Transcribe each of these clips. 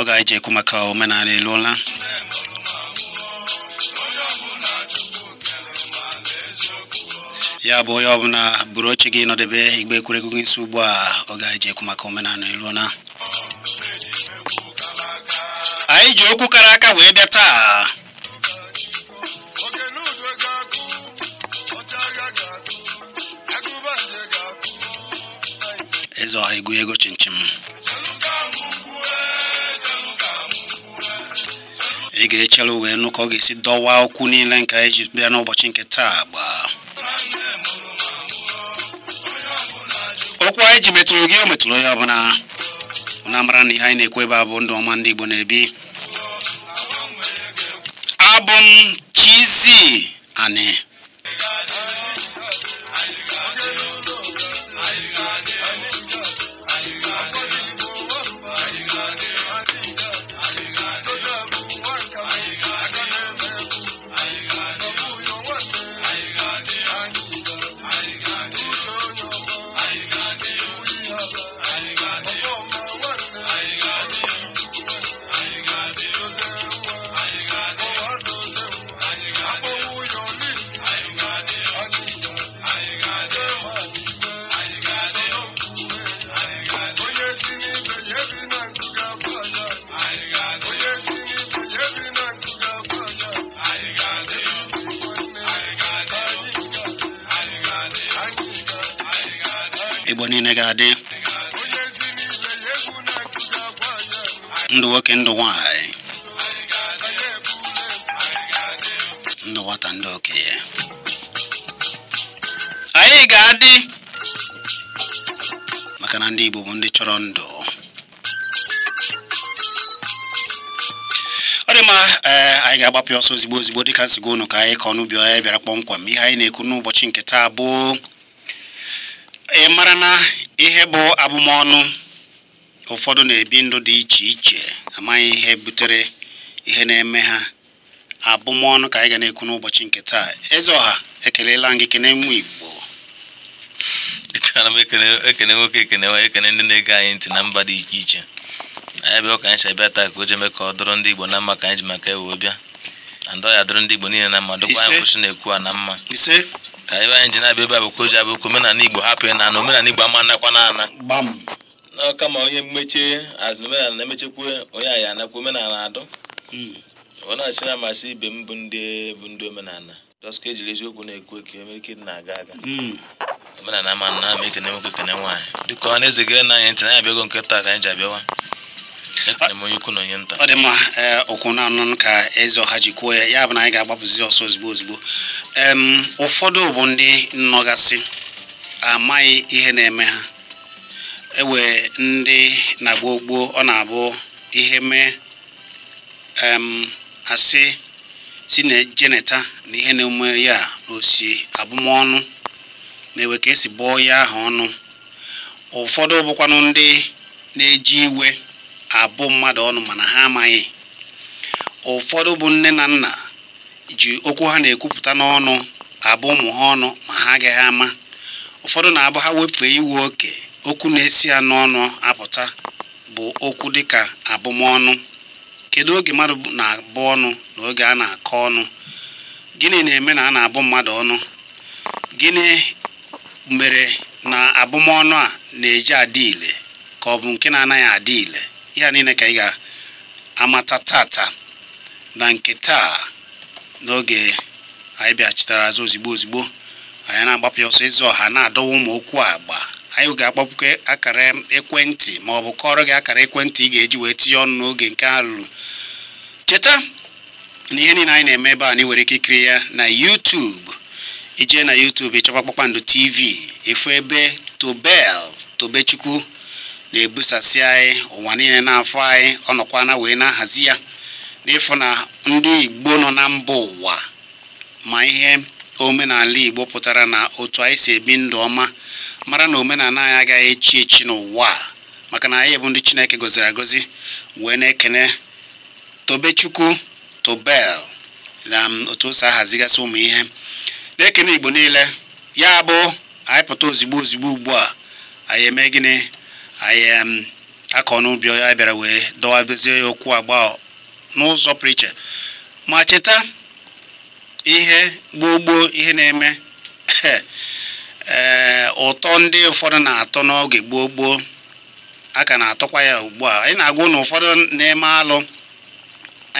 ọ ga eji ekwu maka omenala eluola ya bụ onye ọbụla buru oche gị nọdebe igbe ekwuregwu gị nso ugbu a ọ ga eji ekwu maka omenala eluola anyị ji okwu kara aka wee bịa taa ya ego chinchin ị ga-echere wee nụ ọ ga-esi dọwa okwu niile nke anyị ji bịa n'ụbọchị nke taa gbaa okwu anyị ji metụrụ gị o metụrụ ya ọbụla na mara na ihe anyị na ekwebe ebe abụ ndụ ọma ndị Igbo na-ebi abụ m Chizzy Ani ndụ nwoke ndụ nwanyị ndụ nwata ndị okenye anyị ga-adị maka na ndị Igbo bụ ndị chọrọ ndụ ọ dị mma eh, anyị ga-agbapụ ọsọ ozigbo ozigbo dịka nsigo ụnụ ka anyị ka ọnụ bi bịara kpọmkwem ihe anyị na-ekwu n'ụbọchị nke taa bụ ị mara ihe bụ abụmọnụ ụfọdụ na-ebi ndụ dị iche iche amaghị ihe butere ihe na-eme ha abụmọnụ ka anyị ga na-ekwu n'ụbọchị nke taa eze ọha ekelela gị kene nwa igbo m ekene nwoke ekene nwaanyị ekene ndị na-ege anyị ntị na mba dị iche iche anyị bịa ụka anyị si abịa taa ka o ji eme ka ọ dụrụ ndị igbo na mma ka anyị ji maka ewe bịa ndị ya dụrụ ndị igbo niile na mma dụkwa anyị kwụsị na-ekwu a na mma ka ebe anyị ji na-abịa ebe a bụkwa oji abụ okwu omenala igbo hapụ ya na omenala igbo ama anakwa na ana n'ọka ma onye mmeche azụ omenala na-emechekwa onye anyị anakwa omenala adụ hmm. ọ na-achị na amasị ibe m bụ ndị bụ ndị omenala dọska ejiri eziokwu na-ekwu eke omerike dị na-aga aga hmm. omenala ama na ama ekene nwoke ekene nwaanyị dịka ọ na-eze gere na anyị ntị na ya abịago nkịta ka anyị ji abịawa ọ dị mma eh, okwu na-anụ ka eze ọha ji kwuo ya ya bụ na anyị ga-agbapụzi ọsọ ozugbo ozugbo ụfọdụ bụ ndị nnọgasị amaghị ihe na-eme ha ewe ndị na-agba ọ na-abụ ihe mee asị si na jeneta na ihe na-eme ya n'osi osi abụmọnụ na-ewe ka esi bụọ ya ahụ ọnụ ụfọdụ bụkwanụ ndị na-eji iwe abụ mmadụ ọnụ mana ha amaghị ụfọdụ bụ nne na nna ji okwu ha na-ekwupụta n'ọnụ abụ ụmụ ha ọnụ ma ha agaghị ama ụfọdụ na-abụ ha wefee iwe oke okwu na-esi ya n'ọnụ apụta bụ okwu dịka abụmọnụ kedu oge mmadụ na-abụ ọnụ na oge a na-akọ ọnụ gịnị na-eme na a na-abụ mmadụ ọnụ gịnị mere na abụmọnụ a na-eji adị ile ka ọ bụ nke na-anaghị adị ile ihe niile ka ị ga-amata tata na nke taa n'oge anyị bịachitara azụ ozigbo ozigbo anyị na-agbapụ ya ọsọ ezi ọha na-adọwa ụmụ okwu agba anyị ga-akpọpụkwa akara ekwentị ma ọ bụ kọrọ gị akara ekwentị ị ga-eji wee tinye ọnụ n'oge nke a cheta na ihe niile anyị na-eme ebe a na nwere ike ikiri ya na YouTube ijee na YouTube ịchọkwa Kpakpando TV efu ebe Tobel Tobechukwu na-ebusasị anyị ụwa niile n'afọ anyị ọ ọnọkwana wee na-ahazi ya n'ịfụ na ndị igbo nọ na mba ụwa ma ihe omenala igbo pụtara na otu anyị si ebi ndụ ọma mara na omenala anyị agaghị echi echi n'ụwa maka na anyị bụ ndị chineke gọziri agọzi wee na-ekene tobechukwu tobel na otu o ahazigasị ụmụ ihe na-ekene igbo niile ya bụ anyị pụta ozigbo ozigbo ugbu a anyị eme gịnị anyị um, akọ n'ubi ya bịara wee dọwabezie ya okwu agba n'ụzọ pụrụ ma cheta ihe gboo gboo ihe na-eme ee eh, ụtọ ndị ụfọdụ na-atọ n'oge gboo gboo a ka na-atọkwa ya ugbu a anyị na-agwa na ụfọdụ na-eme alụ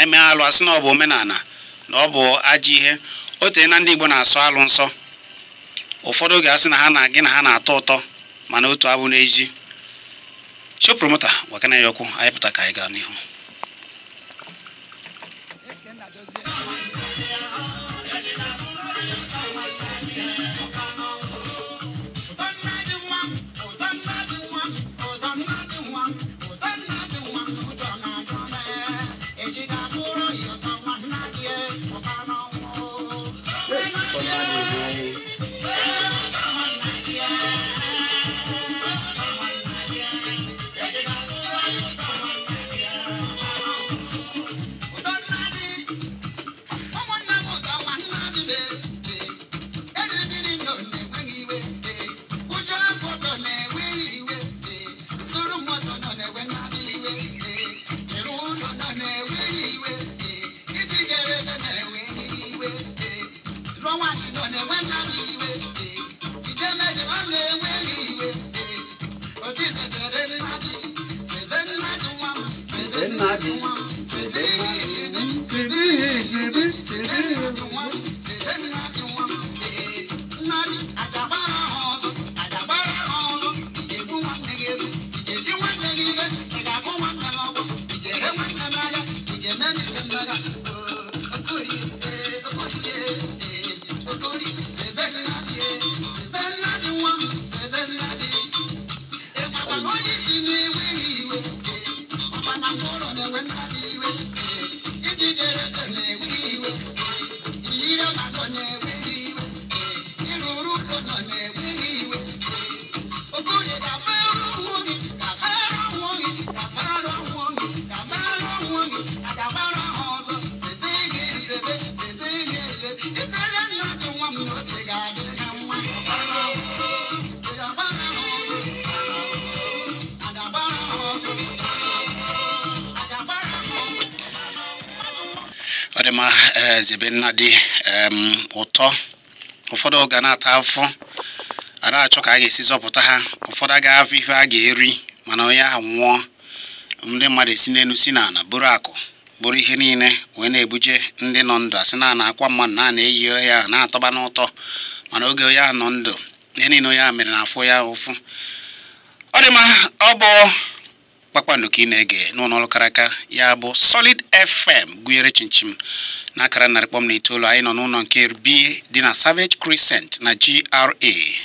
eme alụ asị na ọ bụ omenala na ọ bụ ajọ ihe otu na ndị Igbo na-asọ alụ nsọ ụfọdụ oge asị na ha na gị na ha na-atọ ụtọ mana otu abụ n'eji show promoter gwakana ya okwu anya pụta ka anyị gaa n'ihu ibe nna dị ụtọ ụfọdụ ga na-ata afọ a achọ ka a ga-esi zọpụta ha ụfọdụ agaghị afọ ihe a ga-eri mana onye ahụ nwụọ ndị mmadụ esi n'elu si n'ala bụrụ akụ bụrụ ihe niile wee na-ebuje ndị nọ ndụ asị na akwa mmadụ na na-eyi ya na-atọba n'ụtọ mana oge onye ahụ nọ ndụ ihe niile onye ahụ mere na afọ ya ụfụ ọ dị ọ bụ kpakpando ka ị na-ege n'ụlọ ọrụ karaka ya bụ Solid FM gụnyere chinchim na akara narị kpọm na itoolu anyị nọ n'ụlọ nke B dị na Savage Crescent na GRA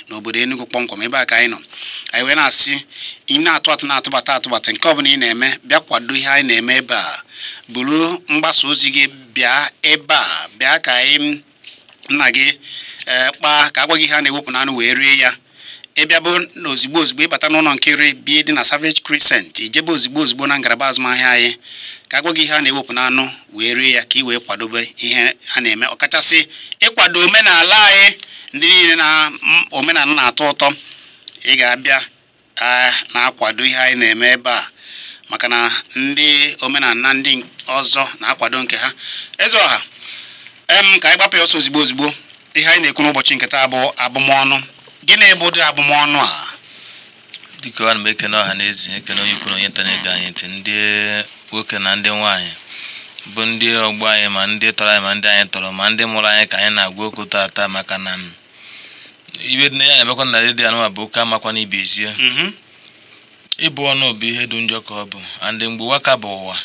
n'obodo Enugu kpọmkwem ebe a ka anyị nọ anyị wee na-asị ị na-atụ atụ na-atụbata atụbata nke ọbụla ị na-eme bịa kwado ihe anyị na-eme ebe a buru mgbasa ozi gị bịa ebe a bịa ka anyị nna gị eh, kpaa ka agwa gị ihe a na-ewepụ n'anụ wee rie ya ịbịabụ na ozigbo ozigbo ịbata n'ụlọ nkiri bie dị na Savage Crescent ijebe ozigbo ozigbo na ngalaba azụmahịa anyị ka agwa gị ihe a na-ewepụ n'anụ wee rie ya ka ị wee kwadobe ihe a na-eme ọkachasị ịkwado omenala anyị ndị niile na omenala na-atọ ụtọ ị ga-abịa na-akwado ihe anyị na-eme ebe a maka na ndị omenala ndị ọzọ na-akwado nke ha eze ọha em ka anyị gbapụ ya ọsọ ozigbo ozigbo ihe anyị na-ekwu n'ụbọchị nketa bụ abụmọnụ gịnị bụ ụdị abụmọnụ a dịka ana m ekene ọha na ekene onye kwuru onye ga anyị ntị ndị nwoke na ndị nwaanyị bụ ndị ọgbọ anyị ma ndị tọrọ anyị ma ndị anyị tọrọ ma ndị mụrụ anyị ka anyị na-agwa okwu taata maka na ibe dị na ya na-emekwa na redio anụwa bụ oke amakwa na ibi mm-hmm. ịbụ ọnụ bụ ihe dị njọ ka ọ bụ andị mgbe ụwa ka bụ ụwa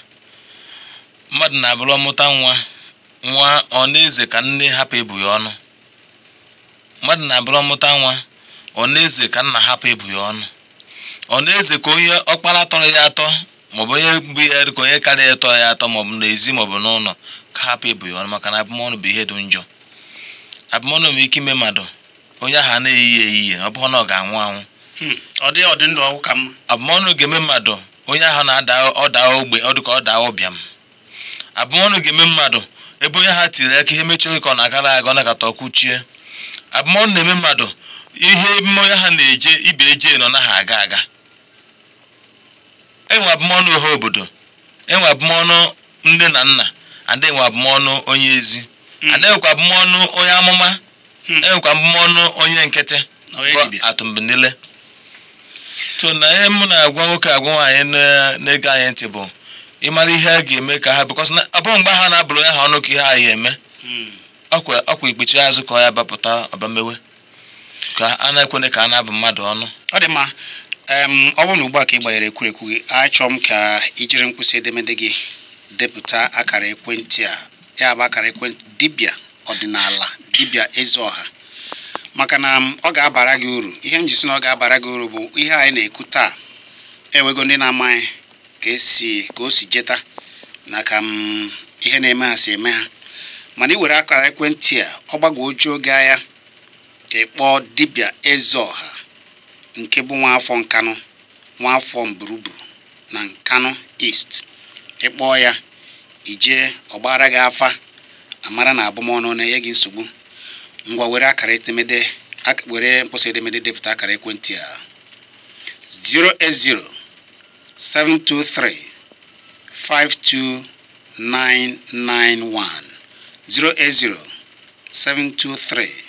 mmadụ na-abụrụ ọmụta nwa nwa ọ na-eze ka nne hapụ ebughị ya ọnụ mmadụ na-abụrụ ọmụta nwa ọnaeze ka nna hapụ ịbụ ya ọnụ ọnaeze ka onye ọkpara tọrọ ya atọ maọbụ onye bụ ya ka onye karịa ya tọrọ ya atọ maọbụ n'ezi maọbụ n'ụlọ ka hapụ ịbụ ya ọnụ maka na abụmọnụ bụ ihe dị njọ abụmọnụ nwere ike ime mmadụ onye ahụ na ọ na ọ ga-anwụ anwụ hmm. abụmọnụ ga-eme mmadụ ga-eme mmadụ ebe onye ha tiri aka ihe mechie ka na-agara aga ọ na-akata abụmọnụ na-eme mmadụ ihe mmanya ha na-eje ibe eje nọ na ha aga aga enwe abụmọnụ ohe obodo enwe abụmọnụ nne na nna ada enwe abụmọnụ onye ezi hmm. ada enwekwa abụmọnụ onye amụma hmm. enwekwa abụmọnụ onye nkịtị atụmbinile so na ihe mụ na-agwa nwoke agwa nwaanyị na-ege anyị ntị bụ ịmara ihe a ga-eme ka ha bịkọs na bụrụ mgbe ha na-abụrụ ya ha ọnụ ka ihe anyị eme hmm. ọkwa ikpechi azụ ka ọ ya bapụta ọbamewe ka a na-ekwene ka a na-abụ mmadụ ọnụ ọ dị mma ọ bụrụ na ugbu a ka ị gbanyere ekwurekwu gị achọ m ka ijiri mkpịsị edemede gị depụta akara ekwentị a ya bụ akara ekwentị dibịa ọdịnala dibịa eze ọha maka na ọ ga-abara gị uru ihe m ji si na ọ ga-abara gị uru bụ ihe anyị na-ekwu taa enwego ndị na-amaghị ka esi ka o si jeta na ka ihe na-eme ha si eme ha mana i were akara ekwentị a ọ ojuo oge agha ịkpọ dibịa ọha nke bụ nwaafọ Nkanụ nwaafọ Mburuburu na Nkanụ East ịkpọ ya ijee ọgbara gị afa amara na abụmọnụ na-enye gị nsogbu ngwa were akara etemede were mkpọsa edemede depụta akara ekwentị a 08072352991 08072352991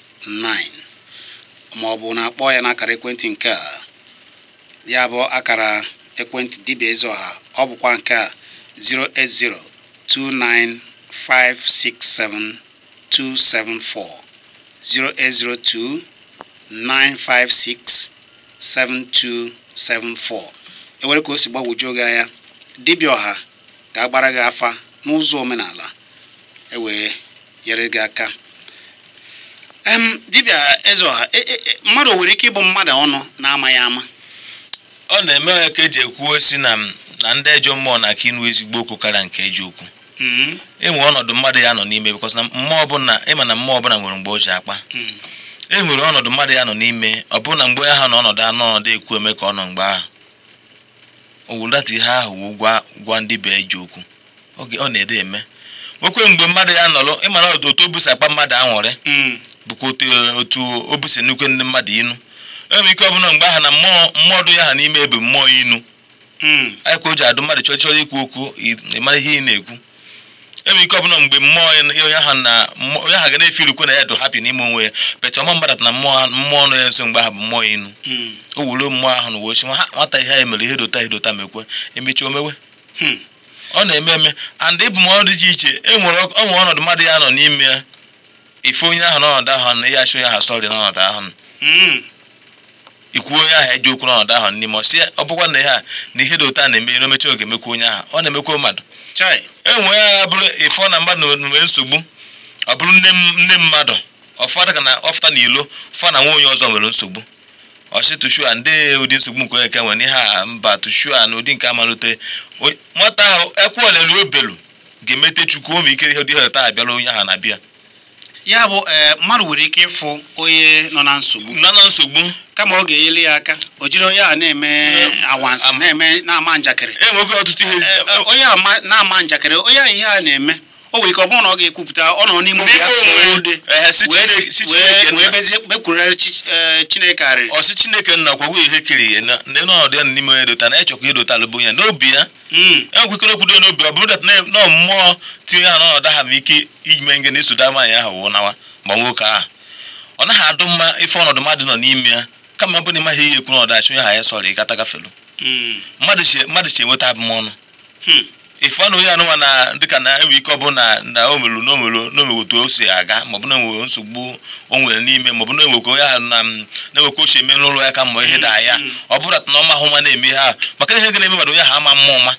9 ma ọ bụ na akpọ ya n'akara ekwentị nke a ya bụ akara ekwentị dibịa ezi ọha ọ bụkwa nke a 08029567274 enwere e nwere ka o si gbagwojuo gị anya dibịa ọha ga-agbara gị afa n'ụzọ omenala e wee nyere gị aka dibịa eze Ezeọha mmadụ nwere ike ịbụ mmadụ ọnụ na-amaghị ama ọ na-eme ya ka eji ekwuo si na na ndị ejọ mmụọ na aka ịnụ ezigbo okwu karịa nke eji okwu enwe ọnọdụ mmadụ ya nọ n'ime bikọs na mmụọ ọbụla ịma na mmụọ ọbụla nwere mgbe o ji akpa e nwere ọnọdụ mmadụ ya nọ n'ime ọbụna mgbe ha nọ ọnọdụ anụ ọnọdụ ekwu eme ka ọ nọ mgbe ahụ owulata ihe ahụ wụ gwa ndị be eji okwu oge ọ na-ede eme nwekwe mgbe mmadụ ya nọrọ ịmara otu o busakpa mmadụ aṅụrị hmm. bụkwa otu o busi nnukwu ndị mmadụ inu enwere ike ọbụla mgbe aha na mmụọ dụ ya ha n'ime ebe mmụọ inu hmm. anyị ka o ji adụ mmadụ chọrọ ikwu okwu mara ihe ị na-ekwu enwere ike ọbụla mgbe mmụọ onye ha ga na ilukwu na ya dụ hapi n'ime onwe ya pecha ọma mmadụ na mmụọ ọnụ ya nso mgbe aha bụ mmụọ inu hmm. o wuru mmụọ ahụ na uwe ochi nwata ihe anyị mere ihe dota edota mekwe emechi omewe hmm. ọ na-eme eme and ịbụ m dị iche iche enwere ọnọdụ mmadụ ya nọ n'ime ya ife onye ahụ n'ọnọdụ ahụ na ya achọ onye ahụ sọrị n'ọnọdụ ahụ hmm. ikwuo onye ahụ eji okwu n'ọnọdụ ahụ n'ime ọ sị ọ bụkwa na ihe a na ihe dị ụta na-eme n'omechi oge emekwa onye ahụ ọ na-emekwa mmadụ enwe ya bụrụ ife na mmadụ nwee nsogbu ọ bụrụ nne mmadụ ọfọdụ ka na ọfụta na ilo fọ na nwa onye ọzọ nwere nsogbu ọsị tushua ndị ụdị nsogbu nke onye ke nwere ihe a mba tushua na ụdị nke amalite nwata ahụ ekwuolelu obelu ga-emete chukwu ome ike ihe ụdị ihe taa abịala onye ahụ na-abịa ya bụ eh, mmadụ nwere ike ịfụ onye nọ na nsogbu nọ na nsogbu kama ọ ga eyili ya aka o jiri onye a na-eme awansị na-eme na-ama njakịrị e eh, onye na-ama njakịrị onye a ihe a na-eme o nwere ike ọ bụrụ na ọ ga-ekwupụta ọ nọ n'ime obi ya wee chineke ọsị chineke nna e, kwagwo ihe kiri na ndị ya n'ime onye dota na ịchọkwa idotalụ ya n'obi ya hmm. enwekwekere okwudo n'obi ọ bụrụ dat na mmụọ tinye ha n'ọnọdụ ha ma ike ime nge na-esoda nwaanyị ahụ wụ nawa ma nwoke ahụ ọ naghị adụ mma ife ọnọdụ mmadụ nọ n'ime ya kama bụ na ịmaghị ihe ekwu n'ọdachi onye ha ya sọrọ gafelu hmm. mmadụ chi enweta abụmọnụ hmm. ife anụghị anụnwa na dịka na-enwe ike ọbụ na na omelu n'omelu n'omeweta o si aga maọbụ um, na enwe nsogbu o nwere n'ime maọbụ na enwekwa onye ahụ na na-enwekwa ochie eme n'ụlọ ya ka mma ihe daa ya mm, mm. ọ bụrụ na ọma ahụ nwa na-eme ha maka ihe ga-eme mmadụ onye ahụ ama mma ụma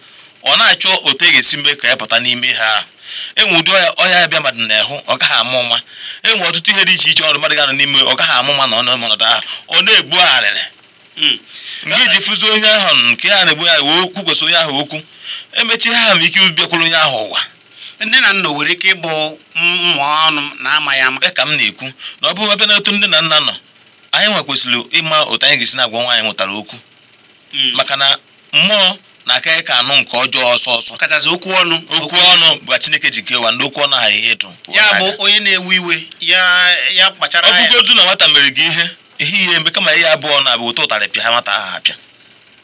ọ na-achọ otu e ga-esi mee ka ya pụta n'ime ha enwe ụdị ọhịa ya bịa mmadụ na-ehụ ọ gaghị ama ụma enwe ọtụtụ ihe dị iche iche ọrụ mmadụ ga-anọ n'ime ọ gaghị ama ụma na ọnụ ọnọdụ ahụ ọ na-egbu arịrị Hmm. nke iji fụzi onye ahụ nke ha na-egbu ya wee okwu kwesị onye ahụ okwu emechi ha ma ike bịakwuru onye ahụ ụwa nne na nna nwere ike ịbụ mmụọ ọnụ na-ama ya ama ka m na-ekwu na ọ bụrụ ebe na otu nne na nna nọ anyị nwa ịma otu anyị ga-esi na-agwa nwaanyị nwetara okwu hmm. maka na mmụọ na-aka ka anụ nke ọjọọ ọsọ ọsọ kachasị okwu ọnụ okwu ọnụ bụ Chineke ji kewa ndị okwu ọnụ ha ihe ịtụ ya bụ onye na-ewe iwe ya kpachara anya ọbụgodu na nwata mere gị ihe ihe ihe mgbe kama ihe abụọ na-abụ otu ụtarị pịa nwata ahụ apịa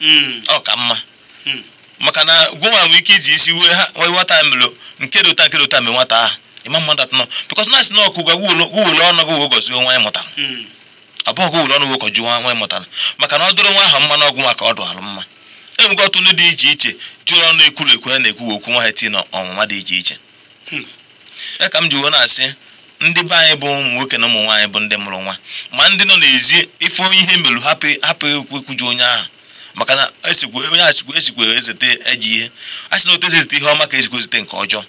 hmm. ọ ka mma hmm. maka na gwụnwa nwere ike iji isi wee ha nwee nwata mere nke ta nke ụta mee nwata ahụ ịma mmadụ atọ nọ bikọs na-asị na ọkụ gwa gwuwere ọnụ gị wee gọzie nwa mụtara abụọ hmm. gwuwere ọnụ nwa mụtara maka na ọ dụrụ nwa ahụ mma n'ọgwụ maka ọ dụrụ mma e ọtụ ndị dị iche iche jụrụ ọnụ na-ekwu okwu nwa ha tii na ọnwụnwa dị iche iche ya m ji wee na-asị ndị be anyị bụ ụmụ nwoke na ụmụ nwaanyị bụ ndị mụrụ nwa ma ndị nọ n'ezi ife onye ihe merụ hapụ ekwuju onye ahụ maka na e onye achịkwa esikwa e ezete eji ihe a sị na otu esi ezete ihe ọma ka esikwa ezete nke ọjọọ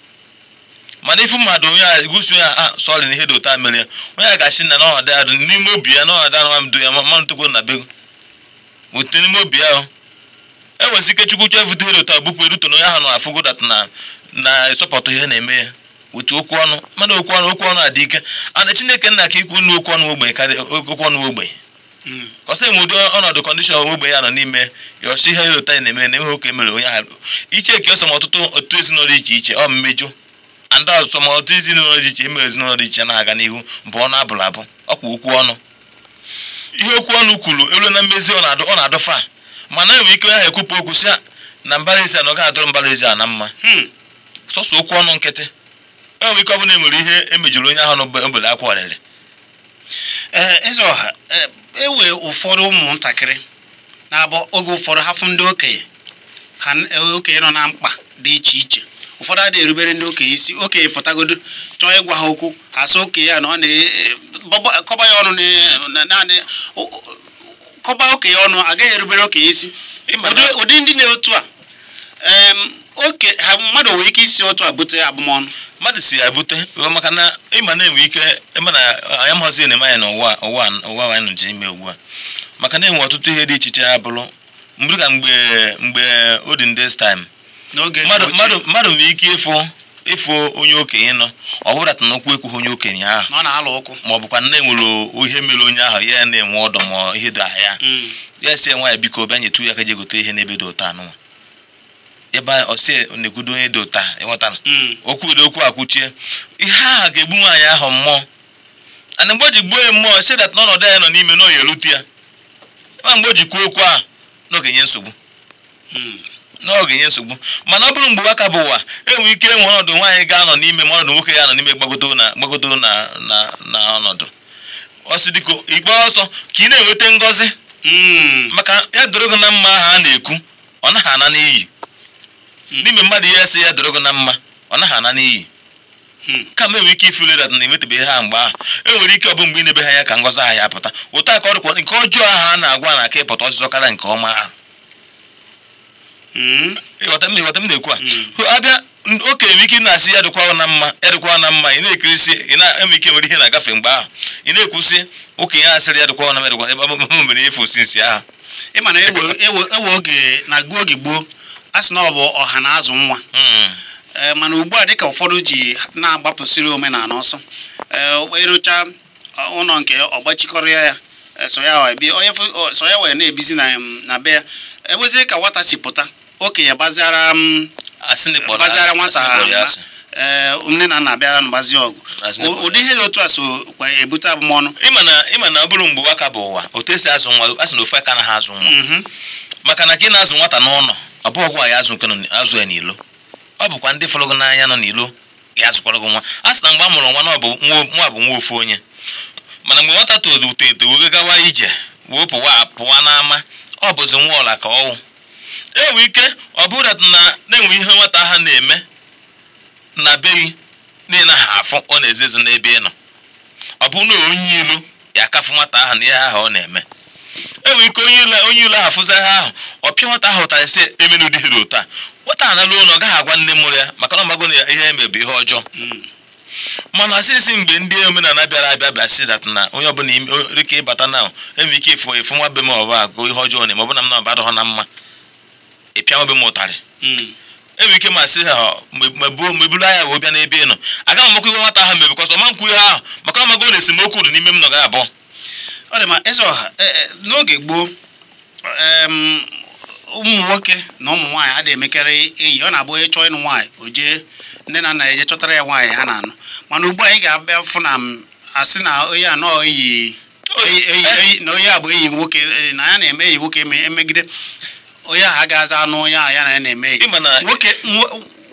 mana ife mmadụ onye a egosi onye a ah, sọrị na ihe dị otu a mere onye a ga na n'ọhada ya n'ime obi ya n'ọhada na mdo ya mmanụ tokwo na bego n'ime obi ya enwezi ike chukwu chọ ihe dị otu bupụ eruto na onye ahụ na afụgo data na na-esọpụtụ ihe na-eme ya otu okwu ọnụ mana okwu ọnụ okwu ọnụ adị ike ana chineke nna ka ikwu unu okwu ọnụ ogbenye karịa okwu ọnụ ogbenye hmm. kọsị m ụdị ọnọdụ kọndishọn ogbenye ya nọ n'ime yọsi ihe ịlụta ya na eme na enweghị oke mere onye ahụ iche eke ọsọm ọtụtụ otu ezinụlọ iche iche ọ mmejọ ndị ọsọm ọtụtụ ezinụlọ dị iche emere ezinụlọ dị iche na-aga n'ihu bụ ọnụ abụrụ abụ ọkwa okwu ọnụ ihe okwu ọnụ kwuru elu na mmezi ọ na-adụ ọ na-adụfa mana enwere ike onye ahụ ekwupụ okwu si na mbara ezi a na ọ ga-adụrụ mbara ezi a na mma hmm. sọsọ okwu ọnụ nkịtị enwere ike ọ bụla enwere ihe emejuru onye ahụ n'obele akwa ọlịlị eze ọha enwe e ụfọdụ ụmụntakịrị na-abụ oge ụfọdụ hafụ ndị okenye ha okenye nọ na mkpa dị iche iche ụfọdụ adịghị erubere ndị okenye isi okenye pụtagodo chọọ ịgwa ha okwu ha sị okenye ya na ọ na-akọba e, ya ọnụ naanị kọba okenye ọnụ agaghị erubere okenye isi ụdị ndị na-etu a oke ha mmadụ nwere ike isi otu abute bute abụmọnụ mmadụ si abute maka na ịma na-enwe ike ịma na anyị amaghịzi eneme anyị n'ụwa ụwa ụwa anyị ji ime ugbu a maka na enwe ọtụtụ ihe dị iche iche abụrụ mgbe ka mgbe mgbe olden days time mmadụ Mmadụ nwere ike ịfụ ịfụ onye okenye nọ ọ bụrụta na okwu ekwughị onye okenye ahụ na-alụ ụkwụ. ma ọ bụkwa na enwere ihe mere onye ahụ ya na-enwe ọdọ ma ihe dị ahịa ya mm. si nwaanyị biko bịa nyetu ya ka je gote ihe n'ebe dị ụtọ anụnwa ebe ọsị na-ekwudo onye dị ụta ịghọtara ụdị hmm. okwu akwuchie ihe aha ga-egbu nwaanyị ahụ mmụọ ana mgbe o ji gbuo ya mmụọ si dat n'ọnọdụ ya nọ n'ime na erute ya ma mgbe o ji kwuo okwu a n'oge nye nsogbu hmm. n'oge nye nsogbu mana ọ bụrụ mgbe ụwa ka bụ ụwa enwere ike enwe ọnọdụ nwaanyị ga-anọ n'ime ma ọnọdụ nwoke ya nọ n'ime gbagodo na gbagodo na na ọnọdụ ọsị dịka ikpe ọsọ ka ị na-enweta ngọzi hmm. maka ya doro gị na mma ahụ a na-ekwu ọ naghị ana n'iyi Hmm. n'ime mmadụ ihe si ya doro gị na mma ọ naghị ana n'iyi hmm. ka m enwe ike ife dat na emetụbeghị ha mgbe ahụ enwere ike ọ bụ mgbe inebe ha ya ka ngọzi aha ya pụta ụta aka ọrụkwa nke ọjọọ ahụ a na-agwa na aka ịpụta ọsịsọ karịa nke ọma ahụ hmm. ịghọta m na-ekwu a abịa oke enwe ike na-asị ya dịkwa na mma ya dịkwa na mma ị na-ekirisi ị na-enwe ike nwere ihe na-agafe mgbe ahụ ị na-ekwusị okenye a asịrị ya dịkwa na m dịkwa ebe m mere efu osisi ahụ ewe e e oge na oge gboo a sị na ọ bụ ọha na azụ nwa hmm. e, mana ugbu a dịka ụfọdụ ji na-agbapụsịrị omenala ọsọ ịrụcha e, e ụlọ nke ọgbachikọrọ ya so ya wee na-ebizi na be ya ebezie ka nwata si pụta okenye baziara nwata nne na nna bịara mgbazi ọgụ ụdị ihe dị otu a so ebute abụmọnụ ịma na ọ bụrụ mgbe ụwa ka bụ ụwa otu esi azụ nwa a sị na ofe aka na azụ nwa mhm. maka na ka na-azụ nwata n'ụlọ ọ bụghị azụ nke azụ ya n'ilo ọ bụkwa ndị fọrọ n'anya nọ n'ilo ga-azụkwara gị nwa a sị na mgbe a mụrụ nwa nwa bụ nwa ofu onye mana mgbe nwata todo uto eto wee gawa ije wee pụwa pụwa n'ama ọ bụzi nwa ọla ka ọnwụ enwe ike ọ bụrụ na na-enwe ihe nwata ha na-eme na beghị na ha afụ ọ na-ezezu n'ebe ị nọ ọ bụ na onye ilu ya akafu nwata ahụ na ihe ahụ ọ na-eme enwere ike onye ule afụzigha ahụ ọpịa nwata ahụ ụtarị sị emena ụdị hiri ụta nwata a naruo na gaghị agwa nne mụrụ ya maka na ọmagwo na ihe eme ihe ọjọọ hmm. mana sịsị mgbe ndị omenala bịara abịa bịa si dat na onye ọbụla ike ịbata na enwere ike ịfụ efu nwa be m ọbụ agụ ihe ọjọọ na maọbụ na m na ọbadọghọ na mma ịpịa nwa be m ụtarị hmm. enwere ike ma sị ha meburu anya wee bịa n'ebe ị nọ agaghị amakwa iwe nwata ahụ mebikọsọ ma nkwụ ihe ahụ maka ọmagwo na esemokwu dị n'ime m nọ ga abụọ ọ dị ma eze ọha e, e, n'oge gboo ụmụ nwoke na ụmụ nwaanyị adịghị emekarị enyi ọ na-abụ onye chọọ ịnụ nwaanyị o jee nne na nna ya eje chọtara ya nwaanyị ha na-anụ mana ugbu anyị ga-abịa fụ na asị na onye anọ eyi na onye a bụ enyi nwoke e, na ya na-eme enyi nwoke emegide onye ahụ ga-aza anụ onye ahụ ya na ya na-eme enyi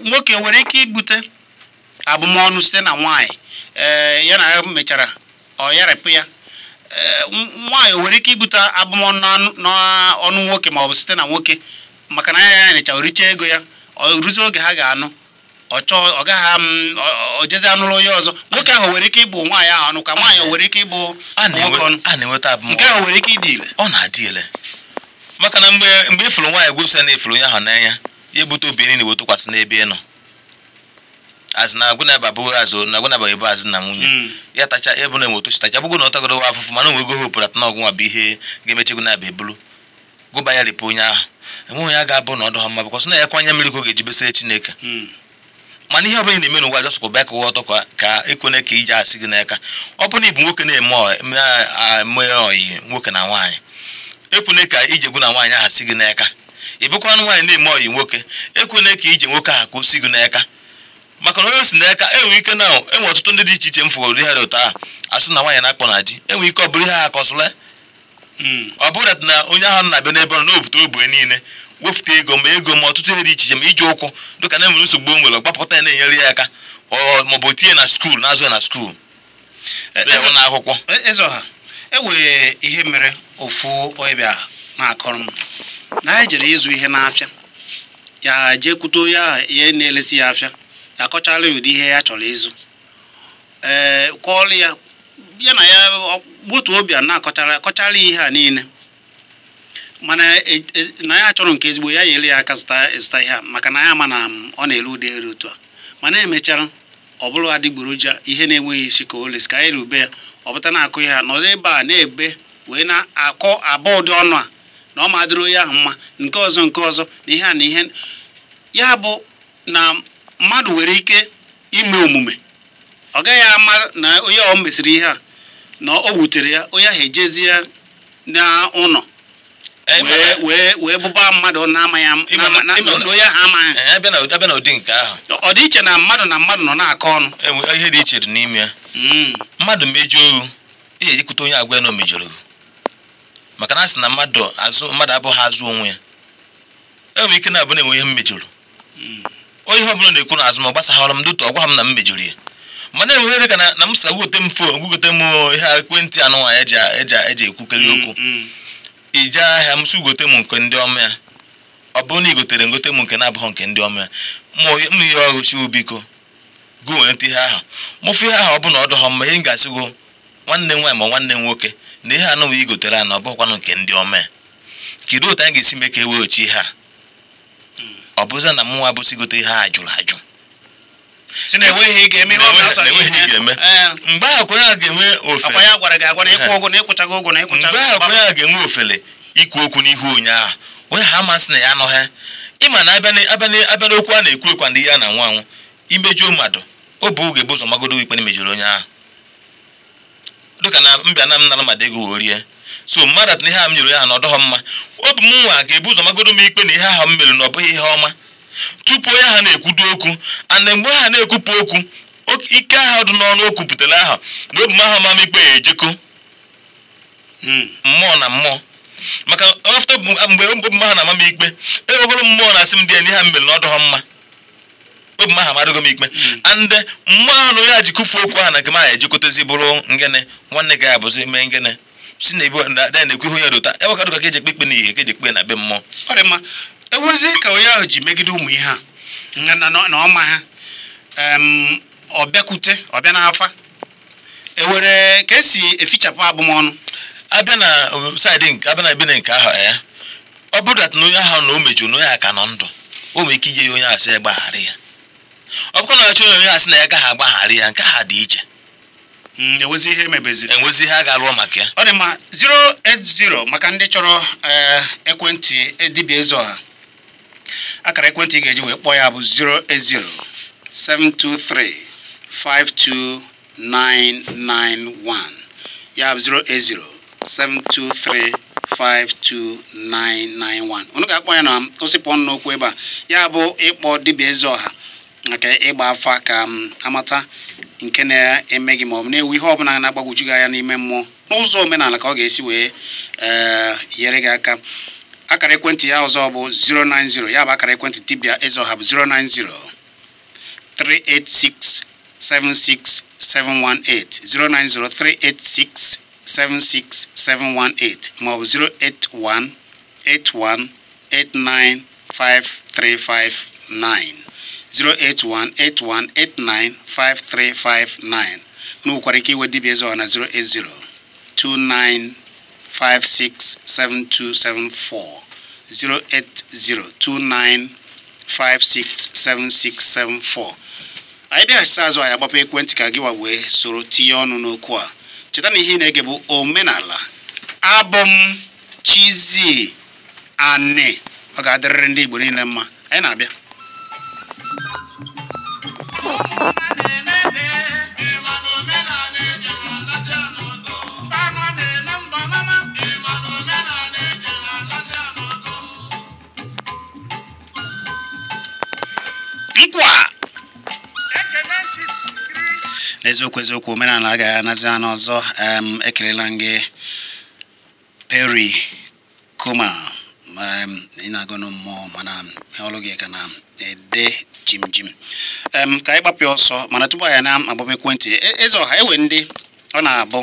nwoke nwere ike ibute abụmọnụ site na nwaanyị ee ya na ya mechara ọ yarapụ ya Eh, nwaanyị o nwere ike ibute abụmọnụ n'ọnụ nwoke maọbụ site na nwoke maka na anya ya nịcha oricha ego ya ọ ruzie oge ha ga-anụ ọ gaghị ojezi anụrụ onye ọzọ nwoke ahụ nwere ike ịbụ nwaanyị ahụ ọnụ ka nwaanyị nwere ike ịbụ nwoke ọnụ nke ahụ nwere ike ịdị ile ọ na-adị ile maka na mgbe mgbe ifuru e nwaanyị gwepụsa na ifuru e onye ahụ n'anya ya ebute obi na iwetụkwasị n'ebe ị nọ na azụ na bụ na nwunye hmm. ya tacha ebe na enwetochi tacha bụgo na ọ tagoro wa afụfụ mana nwego opere atọ n'ọgwụ nwa bụ ihe ga-emechi gụnaba ebulu gụba ya ripụ onye ahụ onye ya ga-abụ na ọdụ ha mma bụkwa sị na ya mmiri ka ọ ga-eji Chineke hmm. mana ihe ọbụla na-eme n'ụwa jọsụkwa bịa kụwa ọtọ ka ekwene ka e ije asị gị n'aka ọ bụ na ịbụ nwoke na-eme oyi nwoke na e ka ije na nwaanyị ahụ si gị n'aka ị bụkwa nwaanyị na-eme oyi nwoke ekwene ka ije nwoke ahụ ka o si n'aka maka na onye si n'aka enwe ike na enwe ọtụtụ ndị dị iche iche m fụgoro ihe dị ụtọ a asị na nwaanyị na-akpọ na di enwe ike ọ bụrụ ihe ha akọsụla hmm. ọ bụrụ na onye ahụ na-abịa n'ebe ọ nọ n'obute ogbe niile wefụta ego ma ego ma ọtụtụ ihe dị iche iche ma iji ụkwụ dịka na-enwere nsogbu o nwere gbapụta ya na-enyere ya aka maọbụ tinye na skuul na azụ ya na skuul e, na akwụkwọ enwere e ihe mere ofu ọbịa na-akọrọ m na anyị jere ịzụ ihe n'afịa ya jee kwute onye ahụ ihe na-elesi ya afịa akọchala ụdị ihe ya chọrọ ịzụ ee kwọọlụ ya ya na ya otu obi a na-akọchara akọchala ihe a niile mana e, e, na ya chọrọ nke ezigbo ya nyere ya aka zụta ihe a maka na ya ma na um, ọ na-ere ụdị eri otu a mana emechara ọ bụrụ adịgboroja ihe na-enweghị isi ka lesi ka anyị rube ya ọ bụta na-akụ ihe a nọdụ ebe a na-ebe wee na-akọ aba ụdị ọnụ a na ọ ma dịrị ahụ mma nke ọzọ nke ọzọ na ihe a na ihe ya bụ na mmadụ nwere ike ime omume ọ gaghị ama na onye ọ mesịrị ihe a na o wutere ya onye ahụ ejezie ya n'ụlọ e, e, e, wee bụba mmadụ na-amaghị onye ahụ amaghị ọ dị iche na mmadụ na mmadụ nọ na-akọ ọnụ ihe dị iche dị n'ime ya hmm. mmadụ mejuo ohu ihe ejikwute onye agwa ya na o mejọrọ ohu maka na asị na mmadụ azụ mmadụ abụghị azụ onwe ya enwere ike na-abụ na enwe ihe mmejọrọ hmm. onye ihe ọbụla na-ekwu na azụ ma gbasaghara m dụtụ ọgwa m na m mejọrọ ya mana enwere ka na m sa gote m fon gote m oh, ihe ekwentị anụ nwaanyị eji ekwukarị mm, okwu ije mm. ahịa m si gote m nke ndị ọma ya ọ bụrụ na igotere gotere ngote m nke na-abụghị nke ndị ọma ya m ihe ọgụchi ubiko gụ nweta ihe ahụ mụfụ ihe ahụ ọ bụ na ọ mma ihe m ga-asị go nwanne m nwaanyị ma nwanne m nwoke na ihe anụnwa i gotere a na ọ bụghịkwanụ nke ndị ọma ya kedu otu anyị ga-esi mee ka e weghachi ihe a ọ bụzi na mụnwa bụsigote ihe a jụrụ ajụ si na ga-eme mgbe ahụ kwere a ga-enwe ofele ikwu okwu n'ihu onye ahụ onye ha amasị na ya anọghị ịma na abịa n'okwu a na-ekwu ekwa ndị ya na nwa anwụ imejuo mmadụ o bụ oge bụ ụzọ magodo ikpe na imejuru onye ahụ dịka na mbịa na m nara mmadụ ego wee rie so mmadụ at na ihe a m nyere ya na ọ dọghọ mma obi m nwa ga-ebu ụzọ magodo m ikpe na ihe ahụ m mere na ọ bụghị ihe ọma tupu onye ha na-ekwudo okwu ana mgbe ha na-ekwupụ okwu ike ahụ dị n'ọnụ o kwupụtara aha na obi m ahụ ma ikpe ya ejekọ hmm, mmụọ na mmụọ maka ọfta mgbe obi m ahụ na-ama m ikpe enweghoro mmụọ na-asị m dị ya na ihe m mere na ọ dọghọ mma obi m ahụ amadịgo m ikpe hmm. ande mmụọ ahụ na onye a ji kụfuo okwu ahụ na nke m ahụ bụrụ ngịnị nwanne gị abụzi mee ngịnị si na ebe ada na-ekwe ihe onye dota eweka dụka ka eji ekpe ikpe na ihe ka eji ekpe e na be mmụọ ọ dị mma ewezi ka onye ahụ ji megide ụmụ ihe a na ọma ha ọ bịakwute ọ bịa n'afa ewere ka esi efichapụ abụmọnụ Abia na um, saịdị abia na ebe na nke ahụ ya eh, ọ bụrụ dat na onye ahụ na o mejuru na onye aka nọ ndụ o nwere ike ije onye asị ya gbaghara ya ọ bụkwa na achọ onye onye asị na ya gaghị agbaghara ya nke ha dị iche Mm, enwezi ihe emebeziri enwezi ihe a ga-alụọ maka ya ọ dị mma 080 maka ndị chọrọ eh, ekwentị dibịa ha akara ekwentị ga-eji wee kpọọ ya bụ 080 723 52991 ya bụ 080 723 ga-akpọ ya na osipụ ọnụ n'okwu ebe a ya bụ ịkpọ dibịa Ezeọha nke ịgba afa ka m amata nke na-emeghị ma ọ bụ na-ewu ihe ọbụla na-agbagwoju gị anya n'ime mmụọ n'ụzọ omenala ka ọ ga-esi wee eh, nyere gị aka akara ekwentị ya ọzọ bụ 090 ya bụ akara ekwentị dibia dibịa ọha bụ 090 386 76718 090 386 76718 ma ọ bụ 081 81 89 5359 08181895359 unu nwekwara ike iwe dibịa eze na 08029567274 anyị bịaghachite azụ anyị agbapụ ekwentị ka gị wa wee soro tinye ọnụ n'okwu a cheta na ihe ị na-ege bụ omenala abụm chizie Chizzy ọ ga-adịrịrị ndị Igbo niile mma anyị na-abịa eziokwu eziokwu omenala agaghị anazi anọ ọzọ um ekelela gị peri kuma ka anyị gbapụ ọsọ mana tupu anyị na-agbaba ekwentị e, e, eze ọha ewe ndị ọ na-abụ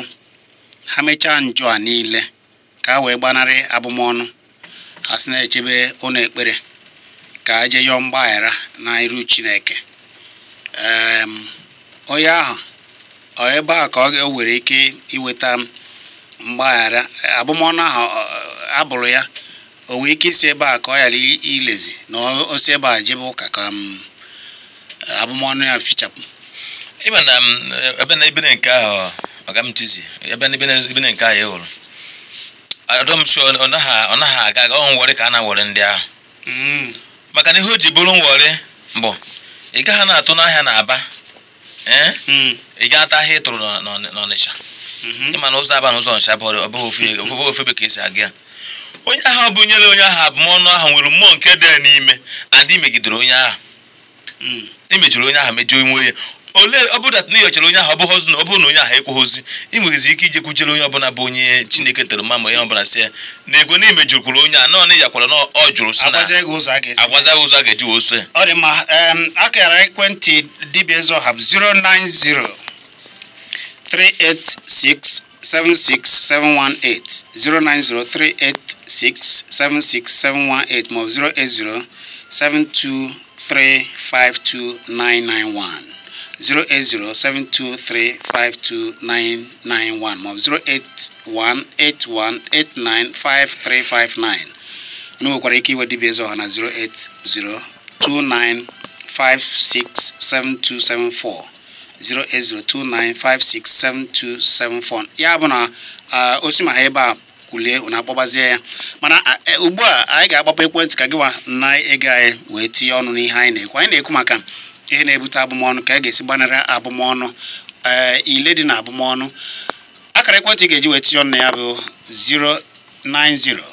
ha mechaa njọ a niile ka a wee gbanarị abụmọnụ ha si na-echebe ụlọ ekpere ka a jee yọọ mgbaghara na iru Chineke onye ahụ ọ ebe a ka o nwere ike iweta mgbaghara abụmọnụ ahụ abụrụ ya o nwee ike isi ebe a ka ọ ghara ilezi na osi ebe a jebe ụka ka abụmọnụ ya fichapụ um, na ebe na nke ahụ ọga m tizi ebe na nke aga ọ nwere ka a ndị ahụ mm. maka na ihe o ji bụrụ nwere mbụ ị gaghị na-atụ n'ahịa na aba e? mm. ị gaa ata ahịa ị tụrụ n'ọnịcha mm-hmm. na ụzọ aba na ọnịcha bụ ka esi aga ya onye ahụ bụ nyere onye ahụ abụmọnụ ahụ nwere mmụọ nke dị n'ime adị megidere onye ahụ emejọrọ hmm. onye ahụ mejọ inwe onye olee ọ bụrụ na ịyọchara onye ahụ ọ bụghị ozi na ọ bụrụ na onye ahụ ekweghịzi ị nwerezi ike ije kwuchere onye ọbụla bụ onye chineke tere mma ma onye ọbụla si ya na ego na imejurukwuru onye a nọ na ịyakwara na ọ jụrụ na ụzọ a ga-eji wee ọ dị akara ekwentị dibịa 090 386-76718 08189531 ma ọ bụ 081 81 89 5359 nwekwara ike iwe dibia eze ọha na 08029567274 08029567274 ya bụ na ah, osi ma ebe a kulie na-akpọbazie ya mana e, ugbu a anyị ga-agbapụ ekwentị ka gịwa na ego anyị wee tinye ọnụ n'ihe anyị na-ekwu anyị na-ekwu maka ihe na-ebute abụmọnụ ka a e ga-esi gbanara abụmọnụ e, ile dị na abụmọnụ akara ekwentị ga-eji wee tinye ọnụ na ya bụ 09023111009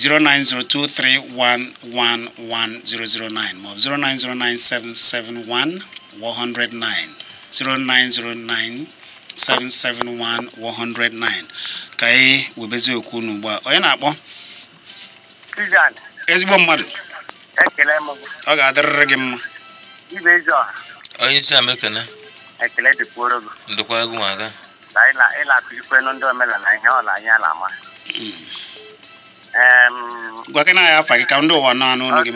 09023111009 maọbụ 0909771 109 0909 109 ka anyị webezie okwu unu ugbu a onye na-akpọ ezigbo mmadụ ọ ga-adịrịrị gị mma onye isi amekene dịkwa egwu ma hmm. gị. gwakena ya afa gị ka ndị ụwa na-anụ unu gị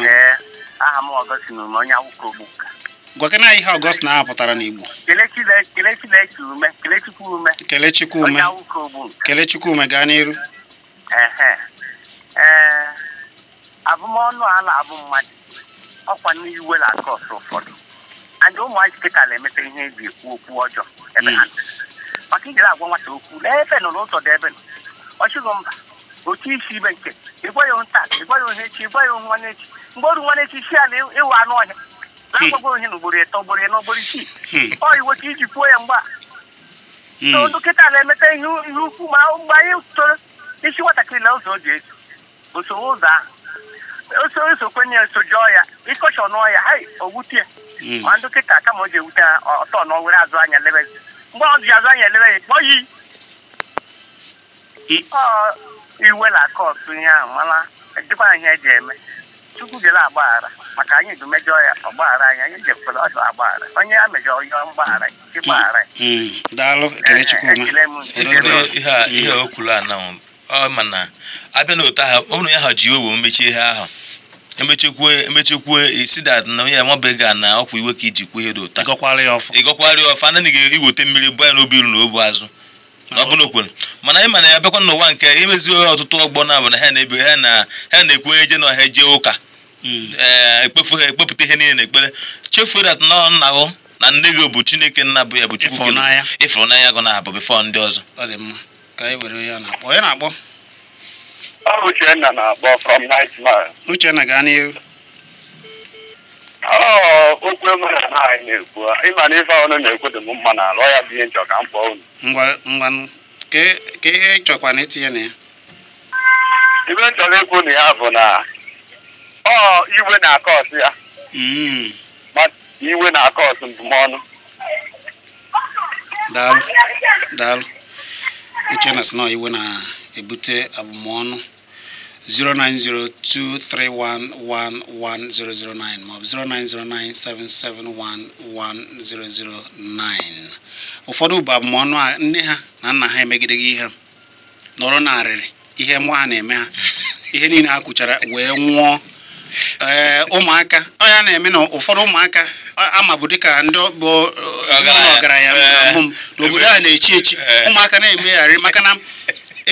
aha m ọgọsi na onye akwụkwọ na ihe ọgọst na-apụtara n'Igbo kele Chukwume gaa n'iru abụmọnụ a na-abụ mmadụ ọkwa n'iwe na-akọ ọsọ ụfọdụ and ụmụazị kịta na-emeta ihe eji ekwu okwu ọjọọ ebe ha hmm. maka ijere agwa nwata okwu nọ n'ụzọ ebe nọ mba isi ibe nke ịgwa nta ịgwa ya ohe echi ịgwa ya mgbe oru na-agbago ihe na ugboro eto ugboro ya na ugboro isii ọ iweta iji kwuo ya mgba so dọkịta na-emeta ihe ukwu ma mgbe anyị toro isi nwatakịrị na ụzọ oji eso osowe ụzọ ahụ oso kwenye soju ọya ịkọchọ n'ọya ha owutie ma dọkịta kama o ji ewute ọtọ na ọwere azụ anya lebezi mgbe ọ ji azụ anya elebe ya kpọ yi iwe na-akọ ọtụ ihe ahụ mana e, dịkwa ihe eji eme Chukwu gere agbaghara maka anyị du mejọ ya ọgbaghara anyị anyị jekwere ọdụ agbaghara onye a mejọ yọọ mgbaghara ịgbaghara ihe o kwuru anahụ ọ ma na abịa n'otu ahụ ọnụ ya ha ji owo mechie ihe ahụ emechekwu emechekwu isi dat na onye amabeghị na ọkwa iwe ka iji kwuo ihe dị ụta ịgọkwara ya ọfa anaghị iweta mmiri bụ ya n'obi iru na obu azụ ọ bụrụ okwu mana anyị mana ya bịakwa n'ụwa nke imezi ohe ọtụtụ ọgbọ na abụ na ha na-ebi ha na ha na-ekwu eje na ọha eje ụka hmm. ee eh, ekpefu ha ekpepụta ihe niile na ekpere chefuo dat nọ nna gụ na nne gị bụ chineke nna bụ ya bụ chukwu ịfụnanya gụ na abụ bifọ ndị ọzọ ọ bụ Uchenna na-akpọ from Nigeria Uchenna gaa n'ihu okwu oh, na anyị na-ekwu ịma na oh, ife ọnụ na-ekwu dị mma ọ ya bụ ihe ka m kpọọ ka ihe na itinye na ya ibe nchọrọ ikwu na ya bụ na ọ iwe na akọọtụ ọsụ ya iwe na daalụ iwe na-ebute abụmọnụ 09023111009 maọbụ 09097711009 ụfọdụ bụ abụmọnụ a nne ha na nna ha emegideghị ihe nọrọ narịrị ihe nwa ha na-eme ha ihe niile ha kwuchara wee nwụọ ee ụmụaka ọ ya na-eme na ụfọdụ ụmụaka ama bụ dịka ndị bụ ọgaranya mbụ m n'obodo a na-echi echi ụmụaka na-emegharị maka na